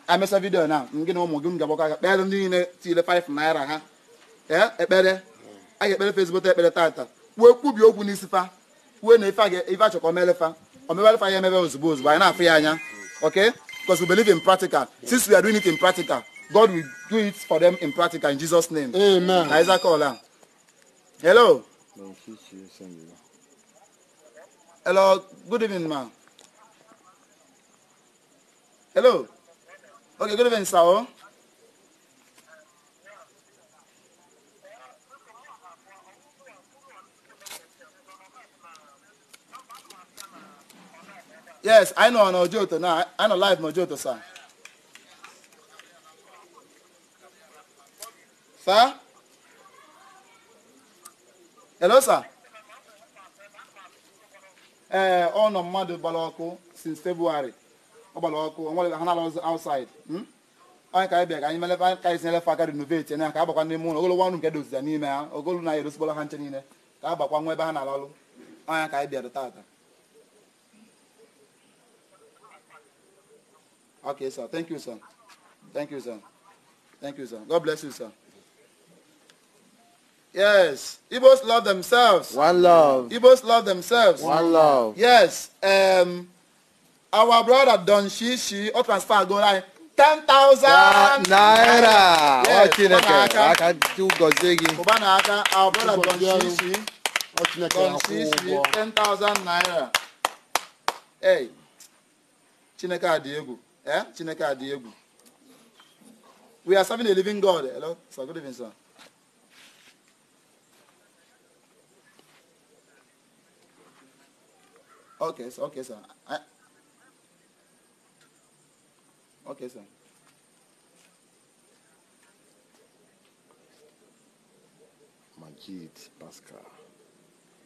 Speaker 1: emesa vidio na gị na ụmụ gị m ga-agbakọ aka kpere ndị niile tinyere 5 naira ha ekpere a ga-ekpere fesibụta ekpere tata kwuo kwubi okwu n'isi fa kwuo na ife a chọkọ omelefa omebalefa ya emebe ozugbo ozugbo anyị na-afụ ya anya ok because we believe in practical since we are doing it in practical God will do it for them in practical in Jesus name amen Isaac Ola hello hello good evening ma Hello. Okay, good evening, sir. Yes, I know an Ojoto now. I know live Mojoto, sir. Sir? Hello, sir. Eh, uh, ọnọ mmadụ gbara since February. Hmm? ka ka ka renovate na ka nke na ka ka tata Okay, sir. Thank you, sir. Thank you, sir. Thank you, sir. God bless you, sir. Yes, Igbos love themselves. One love. Igbos love themselves. One love. Yes. Um, our brother Don Shishi o transfer go like ten thousand naira. Yes, Chineke aka chụgọzie gị. Ụba na aka our brother Don Shishi Don Shishi ten thousand naira. Hey, Chineke adị egwu. Eh? Chineke adị egwu. We are serving a living God. Hello, sir. Good evening, sir. Okay, sir. Okay, sir. I, Okay, sir. Majid Pascal.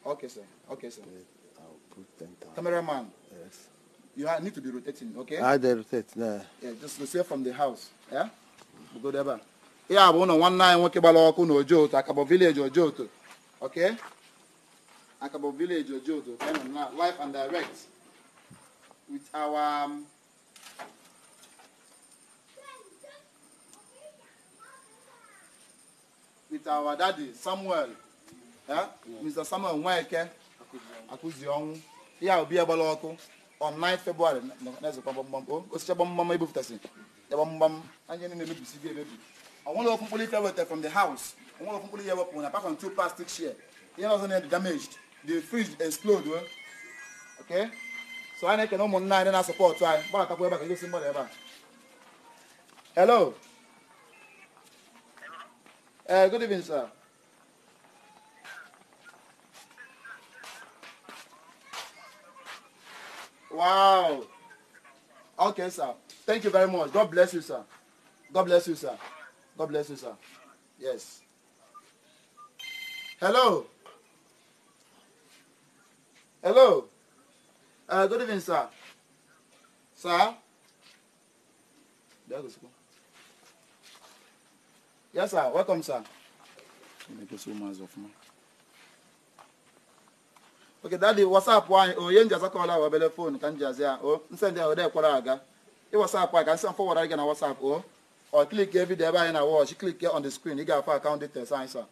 Speaker 1: Okay, sir. Okay, sir. I'll put 10,000. Cameraman. Yes. You need to be rotating, okay? I ah, they rotate, nah. Yeah, just go from the house. Yeah? We'll go there back. Yeah, but no one nine nwoke gbara ọkụ na ojo otu akabo village ojo otu okay akabo village ojo otu kind of live and direct with our um, with our daddy Samuel eh? Mr. Samuel Nweke akụzi ọnwụ ya obi agbala ọkụ on 9 February na-ezekwa gbamgbam osicha gbamgbam ebupụtasị ya gbamgbam anyị niile gị emebi onwere okwu mkpụrụ ife from the house onwere okwu mkpụrụ ihe wepụ na apart from two plastic share ihe ọzọ na damaged the fridge explode eh? okay so anyị na-ekene ụmụnna anyị na-asọpọtụ anyị ebe a ka ebe a hello Uh, good evening, sir. Wow. Okay, sir. Thank you very much. God bless you, sir. God bless you, sir. God bless you, sir. Yes. Hello. Hello. Uh, good evening, sir. Sir. There goes. Yes, sir. Welcome, sir. oke dadi wasapụ anyị onye nji azakọla wa obele oh, ka m ya o oh, nsendị ahụ ode kwara aga ị can anyị ka nsị fọwara gị na wasapụ o oh. ọ klik vidiyo ebe anyị na click klik on the screen ị ga-afọ account details anyị sa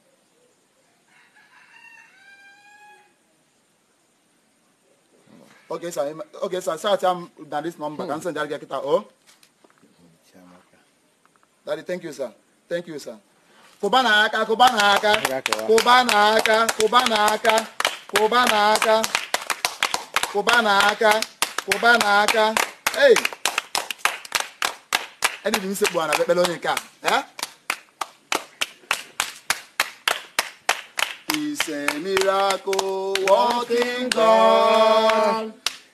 Speaker 1: sir sa sat ya na dis nọmba ka hmm. nsendị arịgị kịta o dadi thank you Thank you, sir. Kụbana aka, kụbana aka, kụbana aka, kụbana aka, kụbana aka, kụbana aka, kụbana aka. Hey! Ẹni dị m sekpu ana ekpere onye nke a. He's a miracle working God.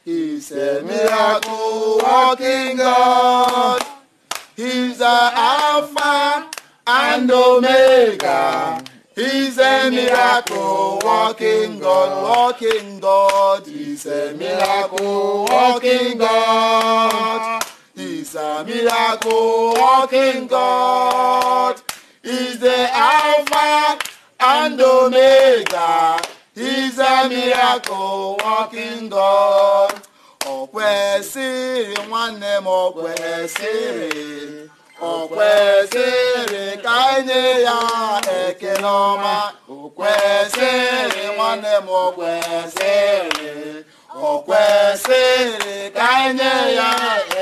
Speaker 1: He's a miracle working God. He's a Alpha and Omega. He's a miracle walking God, walking God. He's a miracle walking God. He's a miracle walking God. He's the Alpha and Omega. He's a miracle walking God. O kwesịrị nwanne o kwesịrị ka nye ya ekele ọma o kwesịrị nwanne m o kwesịrị o kwesịrị ka nye ya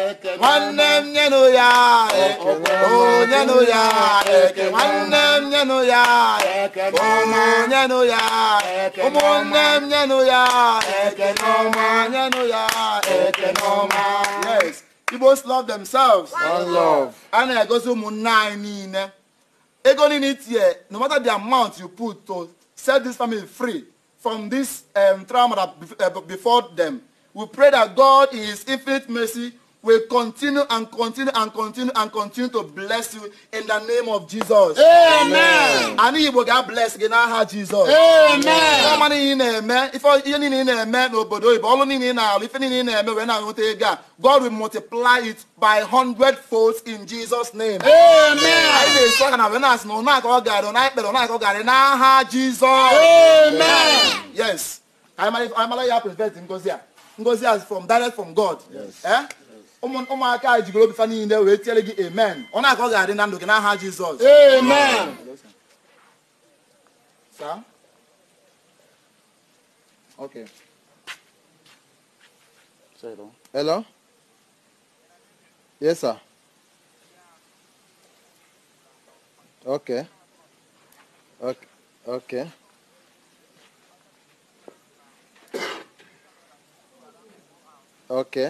Speaker 1: ekele nwanne m nyenụ ya o nyenụ ya ekele nwanne m nyenụ ya ekele ọma nyenụ ya ụmụnne m nyenụ ya ekele ọma nyenụ ya ekele ọma yes Igbos love themselves. One love. And I go so nine Ego in here, no matter the amount you put to set this family free from this um, trauma that uh, before them, we pray that God in His infinite mercy will continue and continue and continue and continue to bless you in the name of Jesus. Amen. And he will get blessed in aha Jesus. Amen. Ọma niile ị in ife ihe niile ị na-eme n'obodo oyibo, ọrụ niile ị na-alụ, ife niile ị am na-eme wee na-aṅụta ego a, God will multiply it by hundred folds in Jesus name. Amen. Anyị na-esi aka na wee na-asị na ụna I'm gara, ụna ekpere, ụna aka ọ I'm. Jesus. Amen. Yes. Anyị mara ya prevent ngozi a. Ngozi a from direct from God. Yes. Eh? ụmụaka anyị jigoro obi fa niile wee tiere gị amen ọ na-aka ọ ga-adị na ndụ gị n'aha jizọs amen saa okay hello yes sir okay okay okay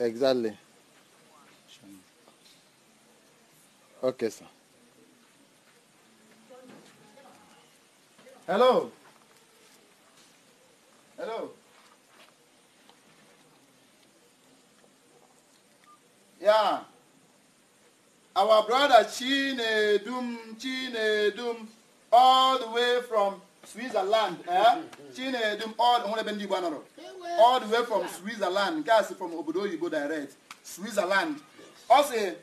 Speaker 1: Exactly. Okay, sir. Hello. Hello. Yeah. Our brother dum, Chinedum, dum, all the way from Switzerland eh chine m all nwere ebe ndị Igbo anọrọ all the way from Switzerland guys from obodo go direct Switzerland Also,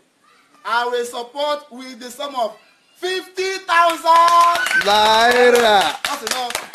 Speaker 1: I will support with the sum of 50,000 naira. Ọ sị n'ọsọ.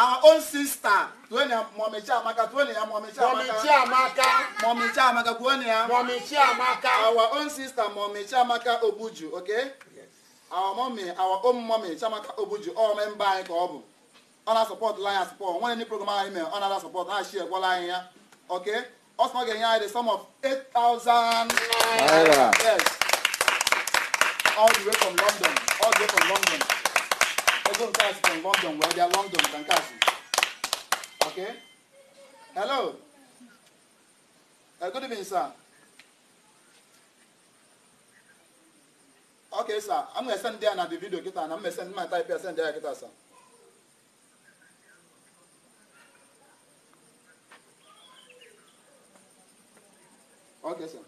Speaker 1: our own sister tuone ya mọmị Chiamaka tuone ya mọmị amaka mọmị amaka mọmị Chiamaka tuone ya mọmị amaka our own sister mọmị amaka Obuju okay our our own mọmị Chiamaka Obuju all memba anyị ka ọ bụ ọ na-asọpọt anyị asọpọt program anyị mere ọ na-ada sọpọt ha shi egwala anyị ya okay ọ ga-enye anyị the sum of 8,000 naira yes all the way from London all the way from London ego nke a site London wee bịa London ka nke a si ok? hello uh, good evening sir sir I'm ya na the video kita na m send my type send ya kita sir ok sir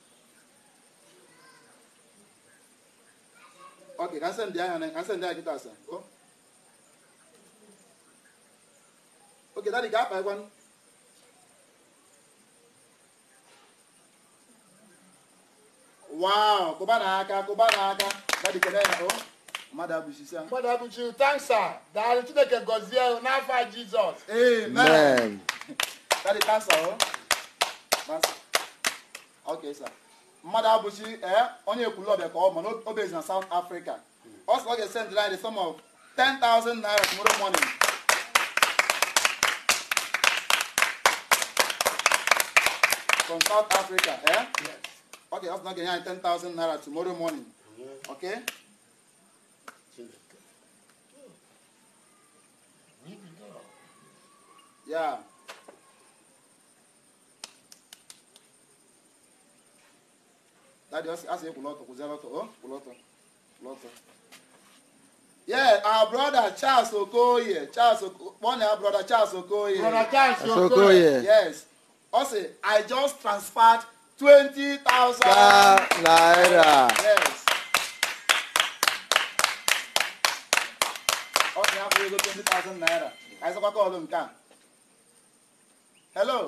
Speaker 1: ok ka send na ka send sir oge dani ga-akpa ịgwanụ wow kụba n'aka kụba n'aka dadi kene ya o mmadụ abụchi sia mmadụ abụchi tansa daalụ chineke gọzie n'afọ jizọs amen dadi tansa o tansa ok sir mmadụ abụchi ee onye ekwulu ọbịa ka ọ ma n'obe na south africa ọ sị ọ ga-esendịrị anyị the sum of 10,000 naira tomorrow morning from South Africa, eh? Yes. Okay, that's not getting 10,000 naira tomorrow morning. Mm-hmm. Okay? Yeah. Daddy, ask you kuloto, kuzeloto, oh, kuloto, kuloto. Yeah, our brother Charles Okoye, Charles Okoye, one our brother Charles Okoye. Brother Charles Okoye. Yes ọ sị i just transferred 20,000 naira. yes. ọ sị afọ ego 20,000 naira ka anyị sọkwa kọọlụ nke a hello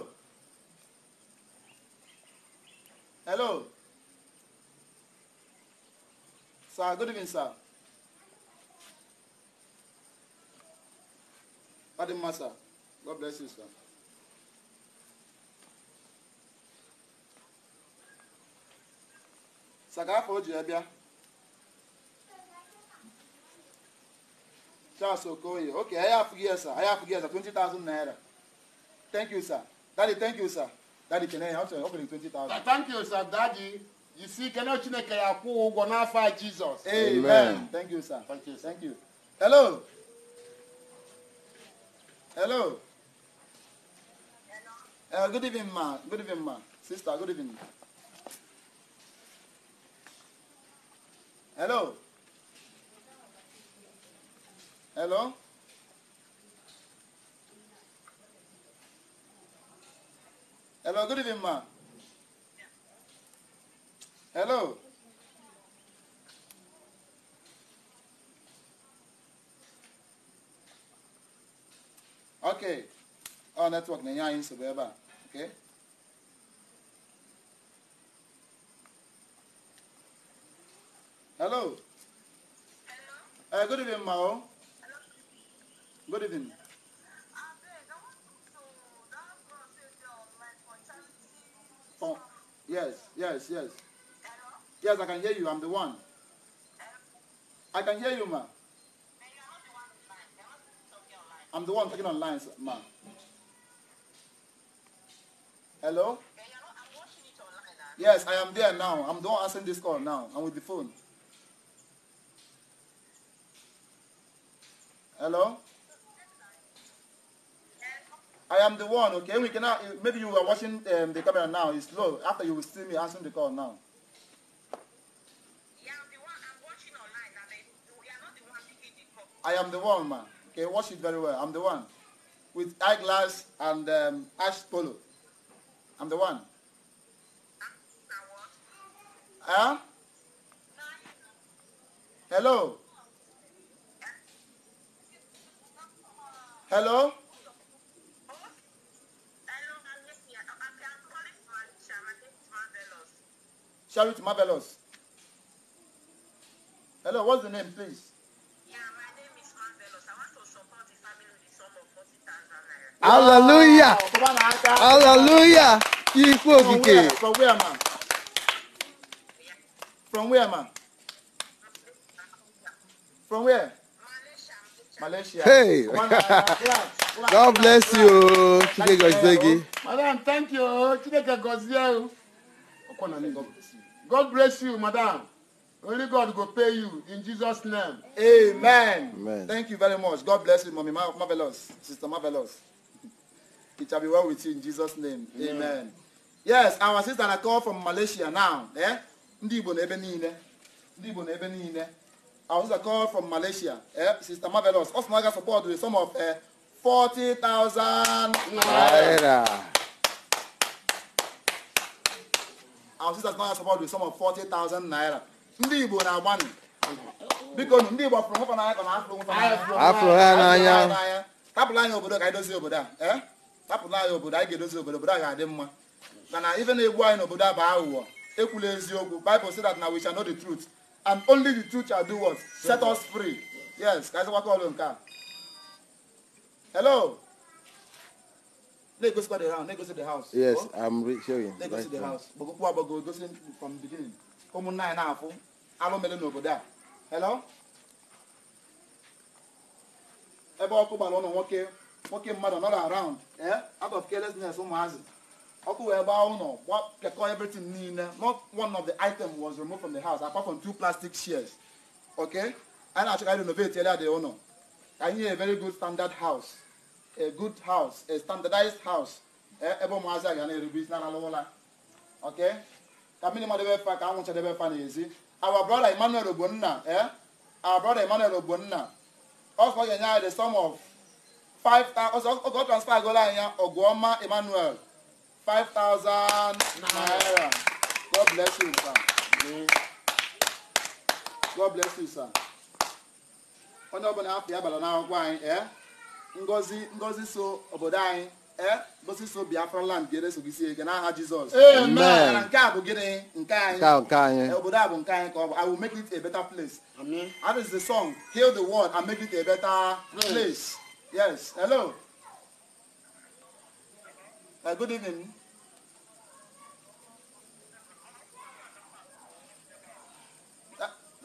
Speaker 1: hello sir good evening sir ọ dị mma sir god bless you sir. saka afọ o ji bịa Charles Okoye okay fui afụghị aí é sir fui afụghị ya sir 20,000 naira thank you sir daddy thank you sir daddy chenere ya ọ sịrị 20,000
Speaker 2: thank you sir daddy you see kene Chineke ya kwụ ụgwọ n'afọ a Jesus amen
Speaker 1: thank you sir thank you thank you hello hello Uh, good evening, ma. Good evening, ma. Sister, good evening. Hello? Hello? Hello, good evening, ma. Hello? Okay. Our network, Nanya, in Subeba. Okay? Hello. Hello. Uh, good evening, Mao. Hello. Good evening. Ah, oh, yes, yes, yes. Hello? Yes, I can hear you. I'm the one. Hello? I can hear you, ma. I'm the one talking online, ma. Hello? Yes, I am there now. I'm the one answering this call now. I'm with the phone. Hello? I am the one, okay? We cannot, eh, maybe you are watching um, the camera now. It's slow. After you will see me answering the call now. I'm the one. I'm the one I am the one, man. Okay, watch it very well. I'm the one. With eyeglass and um, ash polo. I'm the one. Ah, huh? Hello? Hello? Charity Marvelous. Hello, what's the name, please? Yeah, my name is Marvelous. I want to support the family with the sum of 40,000 naira. Hallelujah! Wow. Hallelujah! Ikú òkìkè. From where, man? From where, ma? From where? Hey! God bless you, Chideke Gozegi.
Speaker 2: Madam, thank you, Chideke Gozegi.
Speaker 1: God bless you, madam. Only God will pay you in Jesus' name. Amen. Amen. Thank you very much. God bless you, Mommy. Marvelous. Sister Marvelous. It shall be well with you in Jesus' name. Amen. Amen. Yes, our sister I call from Malaysia now. Eh? Ndị Igbo na ebe niile. Ndị na ebe niile. our sister called from Malaysia. Eh? Sister Marvelous. Also, Naga support with a sum of 40,000 eh, naira. Our sisters Naga support with a sum of 40,000 naira. Ndị Igbo na Biko ndị Igbo fụrụ nwoke n'anya ka na Tapụla anyị obodo ka anyị dozie obodo a. Eh? Tapụla anyị obodo anyị ga-edozi obodo obodo a ga-adị mma. Mana ife na-egbu anyị n'obodo a bụ aghụghọ. Ekwula eziokwu. Bible na we shall know and only the truth shall do what? Set us free. Yes, guys, what call on car? Hello. Let go to the house. Let go to the house. Yes, I'm re- showing. Let go to the house. But go go go from the beginning. Come on nine half. Alo mele no go there. Hello. Ebe ọkụ gbara ọnụ nwoke nwoke mmadụ another around eh? out of carelessness ụmụazị ọkụ wee gbaa ụlọ pịakọ everything niile not one of the item was removed from the house apart from two plastic shears okay anyị na-achọ ka anyị renovate area dị ụlọ ka anyị a very good standard house a good house a standardized house e, ebe ụmụazị a ga na-erube isi n'ala ụla okay ka mmiri mmadụ ebe fa ka anwụ chadebe fa n'ezi our brother Emmanuel Ogbonna eh our Emmanuel Ogbonna ga-enye anyị the sum of ọ transfer 5,000 naira. God bless you, sir. God bless you, sir. onye ọbụla afọ ya anyị obodo anyị ka ọ bụ i will make it a better place that is the song heal the world and make it a better place yes hello Uh, good evening.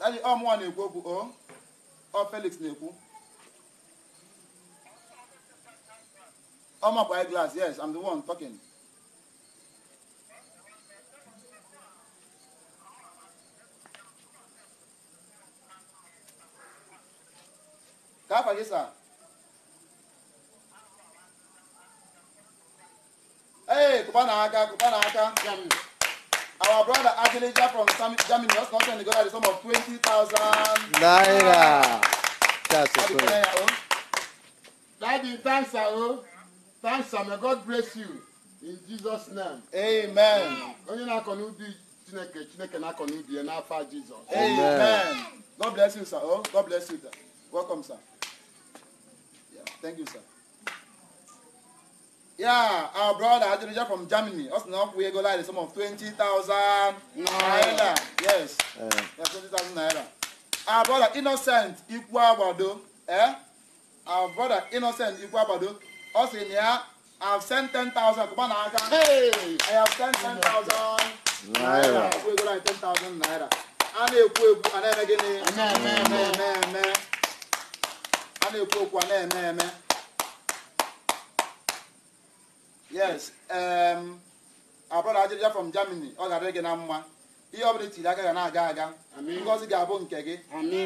Speaker 1: Daddy, ọ mụnwa na-ekwu okwu o ọ Felix na-ekwu um, ọmakwa eye glass yes I'm the one talking. Ka afa gị from Germany just the sum of 20,000 naira. That's a prayer.
Speaker 2: Oh. Daddy, thanks, Aro. Oh. Thanks, sir. May God bless you. In Jesus' name. Amen. Onye Chineke,
Speaker 1: Chineke Jesus. Amen. God bless you, sir. Oh, God bless you, Welcome, sir. Yeah. Thank you, sir. Yeah, our brother Adrija from Germany. Us now we go like the sum of 20,000 naira. Yes. Uh, 20,000 naira. Our brother Innocent Ikwabado. Eh? Our brother Innocent ikwu Ikwabado. Us na ya have sent 10,000. Come na Aka. Hey! I have sent 10,000 naira. We go like 10,000 naira. A na-ekwu ekwu a na-eme gịnị? A na-eme eme eme. A na-ekwu okwu a na-eme eme. yes um abroda from germany ọ gara gị na mma ihe ọ bụla itiri aka ga na-aga aga ngozi ga-abụ nke gị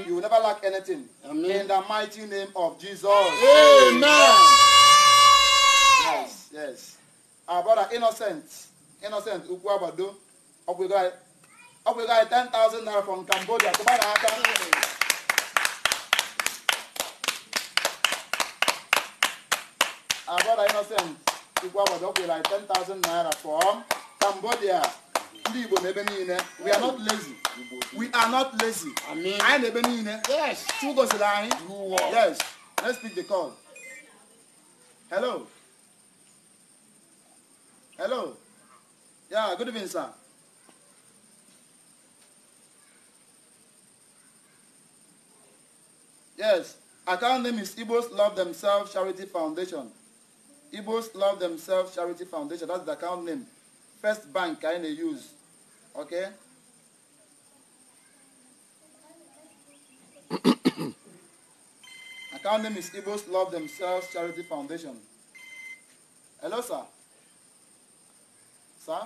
Speaker 1: you will never lack anything in the mighty name of jesus amen yes yes abroda innocent innocent ukwu agbado ọ 10,000 naira from cambodia tụba na aka abroda innocent Igbo Awadok with 10,000 naira from Cambodia. Ndị Igbo n'ebe niile. We are not lazy. We are not lazy. Anyị n'ebe niile. Yes. Chukwu gosiri anyị. Yes. Let's pick the call. Hello. Hello. Yeah, good evening, sir. Yes, account name is Igbos Love Themselves Charity Foundation. Igbos Love Themselves Charity Foundation. That's the account name. First Bank I use. Okay? account name is Igbos Love Themselves Charity Foundation. Hello, sir. Sir?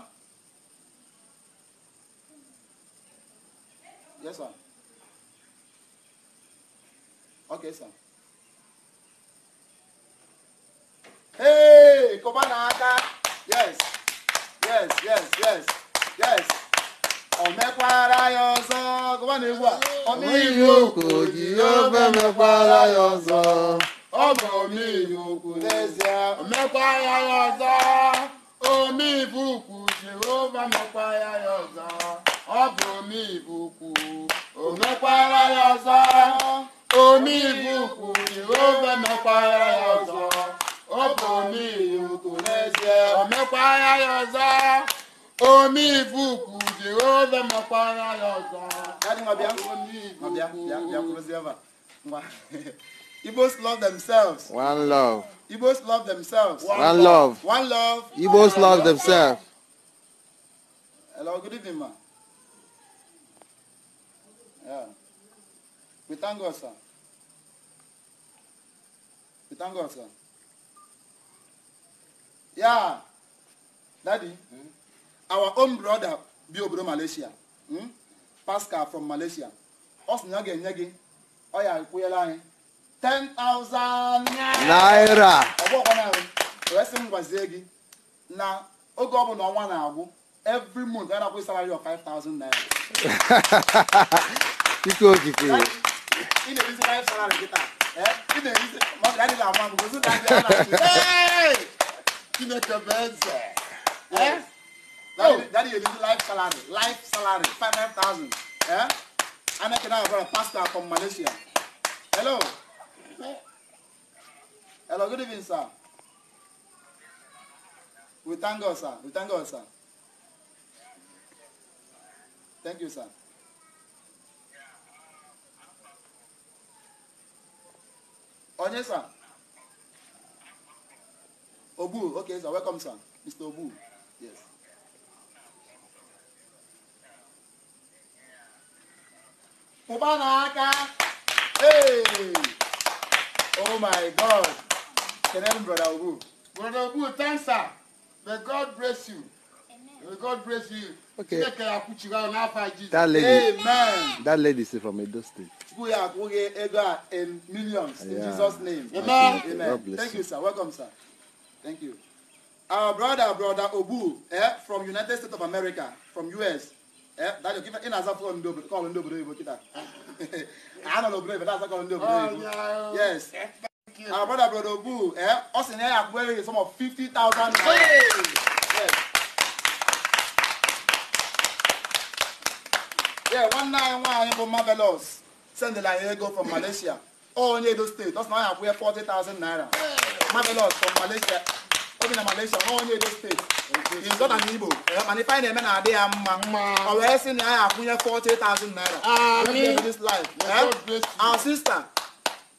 Speaker 1: Yes, sir. Okay, sir. hey kobana aka yes yes yes yes yes ọ mekwara ya ọzọ kobana egwu a
Speaker 2: ọmịiwu okwu ji ofe mekwara ya ọzọ ọ bụ ọmịiwu okwu mekwara omi ìbùkù jehova mẹkwara ya ọzọ omi ìbùkù omekwara ya omi ìbùkù jehova mẹkwara ya ọzọ ọkùnrin mi ò kò lẹ́sẹ̀ ọ̀mẹ́pà ayáyọ̀sá omi ìfúkù jehova mọ̀pà
Speaker 1: ayáyọ̀sá. Daddy Mabia, Mabia, Mabia, Mabia, Mabia, Mabia. Igbos love themselves. One love. Igbos love themselves. One, One love. love. One love. Igbos love, love themselves. Hello, good evening, ma. Yeah. We thank God, sir. We thank God, sir. ya dadi hmm? our own brother bi obodo malaysia hmm? pascal from malaysia ọ sị na ọ ga-enye gị ọ ya kwụnyela anyị 10,000 naira ọgbọkwa narị wee sị m gwazie gị na oge ọ bụla ọnwa na-agwụ every month a na-akwụ salary of 5,000 naira ike okike ị na-erizi salary kịta eh, ị na-erizi maka adịghị agwa m gosi na adịghị kinetabeze. Eh? eh? Daddy, oh. daddy, you need life salary. Life salary, five Eh? And I can have a pastor from Malaysia. Hello. Hello, good evening, sir. We thank God, sir. We thank God, sir. Thank you, sir. Onye, sir. Obu, okay, so welcome, sir. Mr. Obu. Yes. Kubanaka. Hey. Oh my God. Can Kenan, Brother Obu. Brother Obu, thanks, sir.
Speaker 2: May God bless you. May God bless you. Okay. That lady, Amen.
Speaker 1: that lady is from Edo State. We are going in millions yeah. in Jesus' name. Amen. Amen. God bless Thank you, sir. Welcome, sir. Thank you. Our brother, brother Obu, eh, from United States of America, from US. Eh, that you give in as a phone do call in and do kita. I don't know but that's a call and do oh, Yes. Our brother, brother Obu, eh, us in here wearing some of 50,000. Hey! Yes. Yeah, one nine one for marvelous. Send the like go from Malaysia. Oh, All in Edo State. That's now I have wear 40,000 naira. Hey! Mamelot from Malaysia. o Malaysia, how many ọnwa onye Edo steeti ịzọ na n'Igbo eh, mana ife anyị na-eme na-adị ya mma ọ wee sị na anyị akwụnye 40,000 naira ah, this life eh? our sister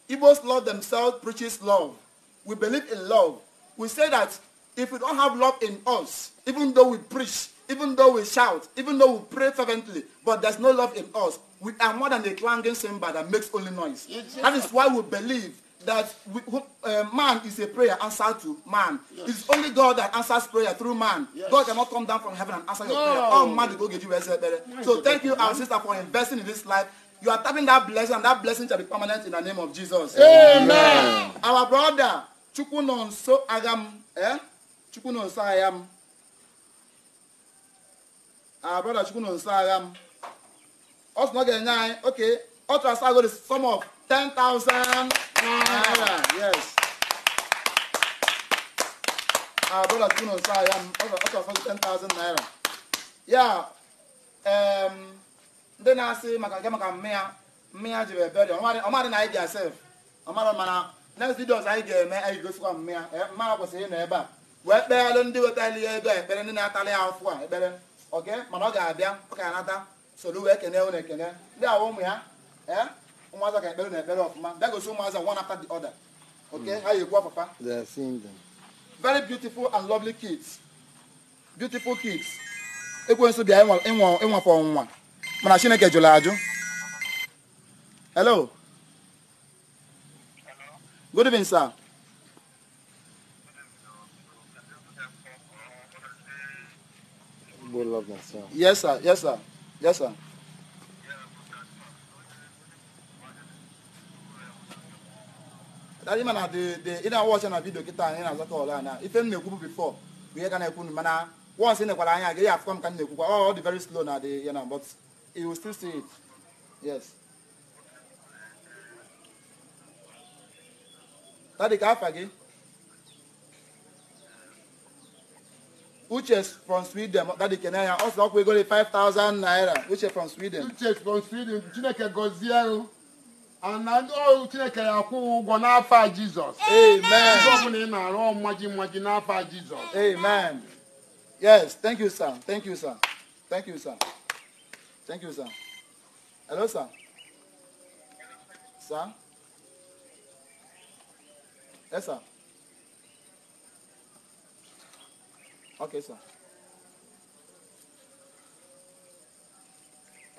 Speaker 1: Igbos love themselves preaches love we believe in love we say that if we don't have love in us even though we preach even though we shout even though we pray fervently but there's no love in us we are more than a clanging cymbal that makes only noise that is why we believe that we, uh, man is a prayer answered to man. Yes. It's only God that answers prayer through man. Yes. God cannot come down from heaven and answer your no. prayer. Oh man, go get you eh, better. So thank you, our sister, for investing in this life. You are tapping that blessing, and that blessing shall be permanent in the name of Jesus. Amen. Amen. Our brother, Chukunonso Agam, eh? Chukunonso Agam. Our brother Chukunonso Agam. Us not getting okay. Ultra Sago is sum of 10,000. naira yes abụla tụrụ ahịa m ọ 10,000 naira ya ndị na-asị maka nke maka mmịa mmịa ji jiri ebere ọmadị na anyị ga sef ọmadụ mana next videos anyị ga-eme anyị gosikwa mme ya mmadụ kwesịrị ịnọ ebe a wee kpeelụ ndị wetali ya ego ekpere ndị na-atalị afụ a ekpere oke mana ọ ga-abịa ọ ga-anata soro wee kene na ekene ndị ụmụ ya eh? ụmụazị ga ekpere na ekpere ọfụma dagosi ụmụazị one after the other okay mm. ha ga-ekwu papa very beautiful and lovely kids beautiful kids ekwensu bịa ịnwapụ ọnwụnwa mana chineke jụrụ ajụ hello good evening sir yes sir yes sir yes sir ịma na ị na-awa ọcha na vidio kịta anyị na-azọ ọla na ife m na-ekwu bụ bifọ bụ ihe na-ekwu mana once ị nekwara anya ya afụkwa m ka m na-ekwukwa ọ dị very slow na dị ya na but will still see it yes tadi ka afa gị Uche from Sweden dadi kene ya ọ sị ọkwa ego 5000 naira Uche from Sweden Uche from Sweden Chineke gozie na ndị ọrụ chineke ya akwụ
Speaker 2: ụgwọ n'afọ a jizọs ihe ọbụla ị na-arụ ọmmaji mmaji n'afọ a jizọs amen
Speaker 1: yes thank you sir thank you sir thank you sir thank you sir hello sir sir yes sir okay sir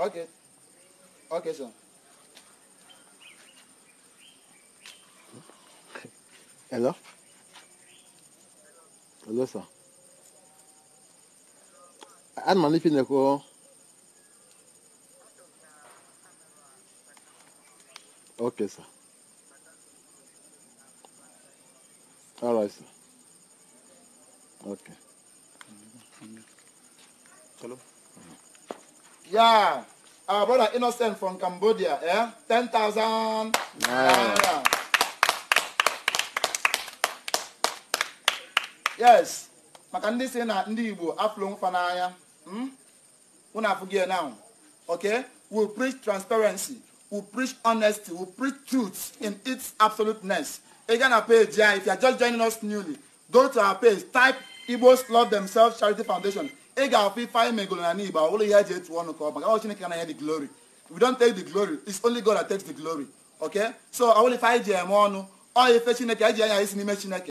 Speaker 1: okay okay sir Hello? Hello, sir. Un man lifi de ko? Ok, sir. Alright, sir. Ok. Hello? Yeah, our brother Innocent from Cambodia, yeah? 10,000 Yeah! Yeah. yes maka ndị si na ndị igbo afụlụ mfa n'anya hmm? unu afụghị na now okay we preach transparency we preach honesty we preach truth in its absoluteness ị gaa na page ya if you are just joining us newly go to our page type igbos love themselves charity foundation ị ga-afụ ife anyị megoro na n'igbo ụlọ ihe eji etu ọnụ ka ọ maka ọ chineke na ya the glory we don't take the glory it's only god that takes the glory okay so ọ bụrụ ife anyị ji eme ọnụ ọ ife chineke anyị ji anya isi n'ime chineke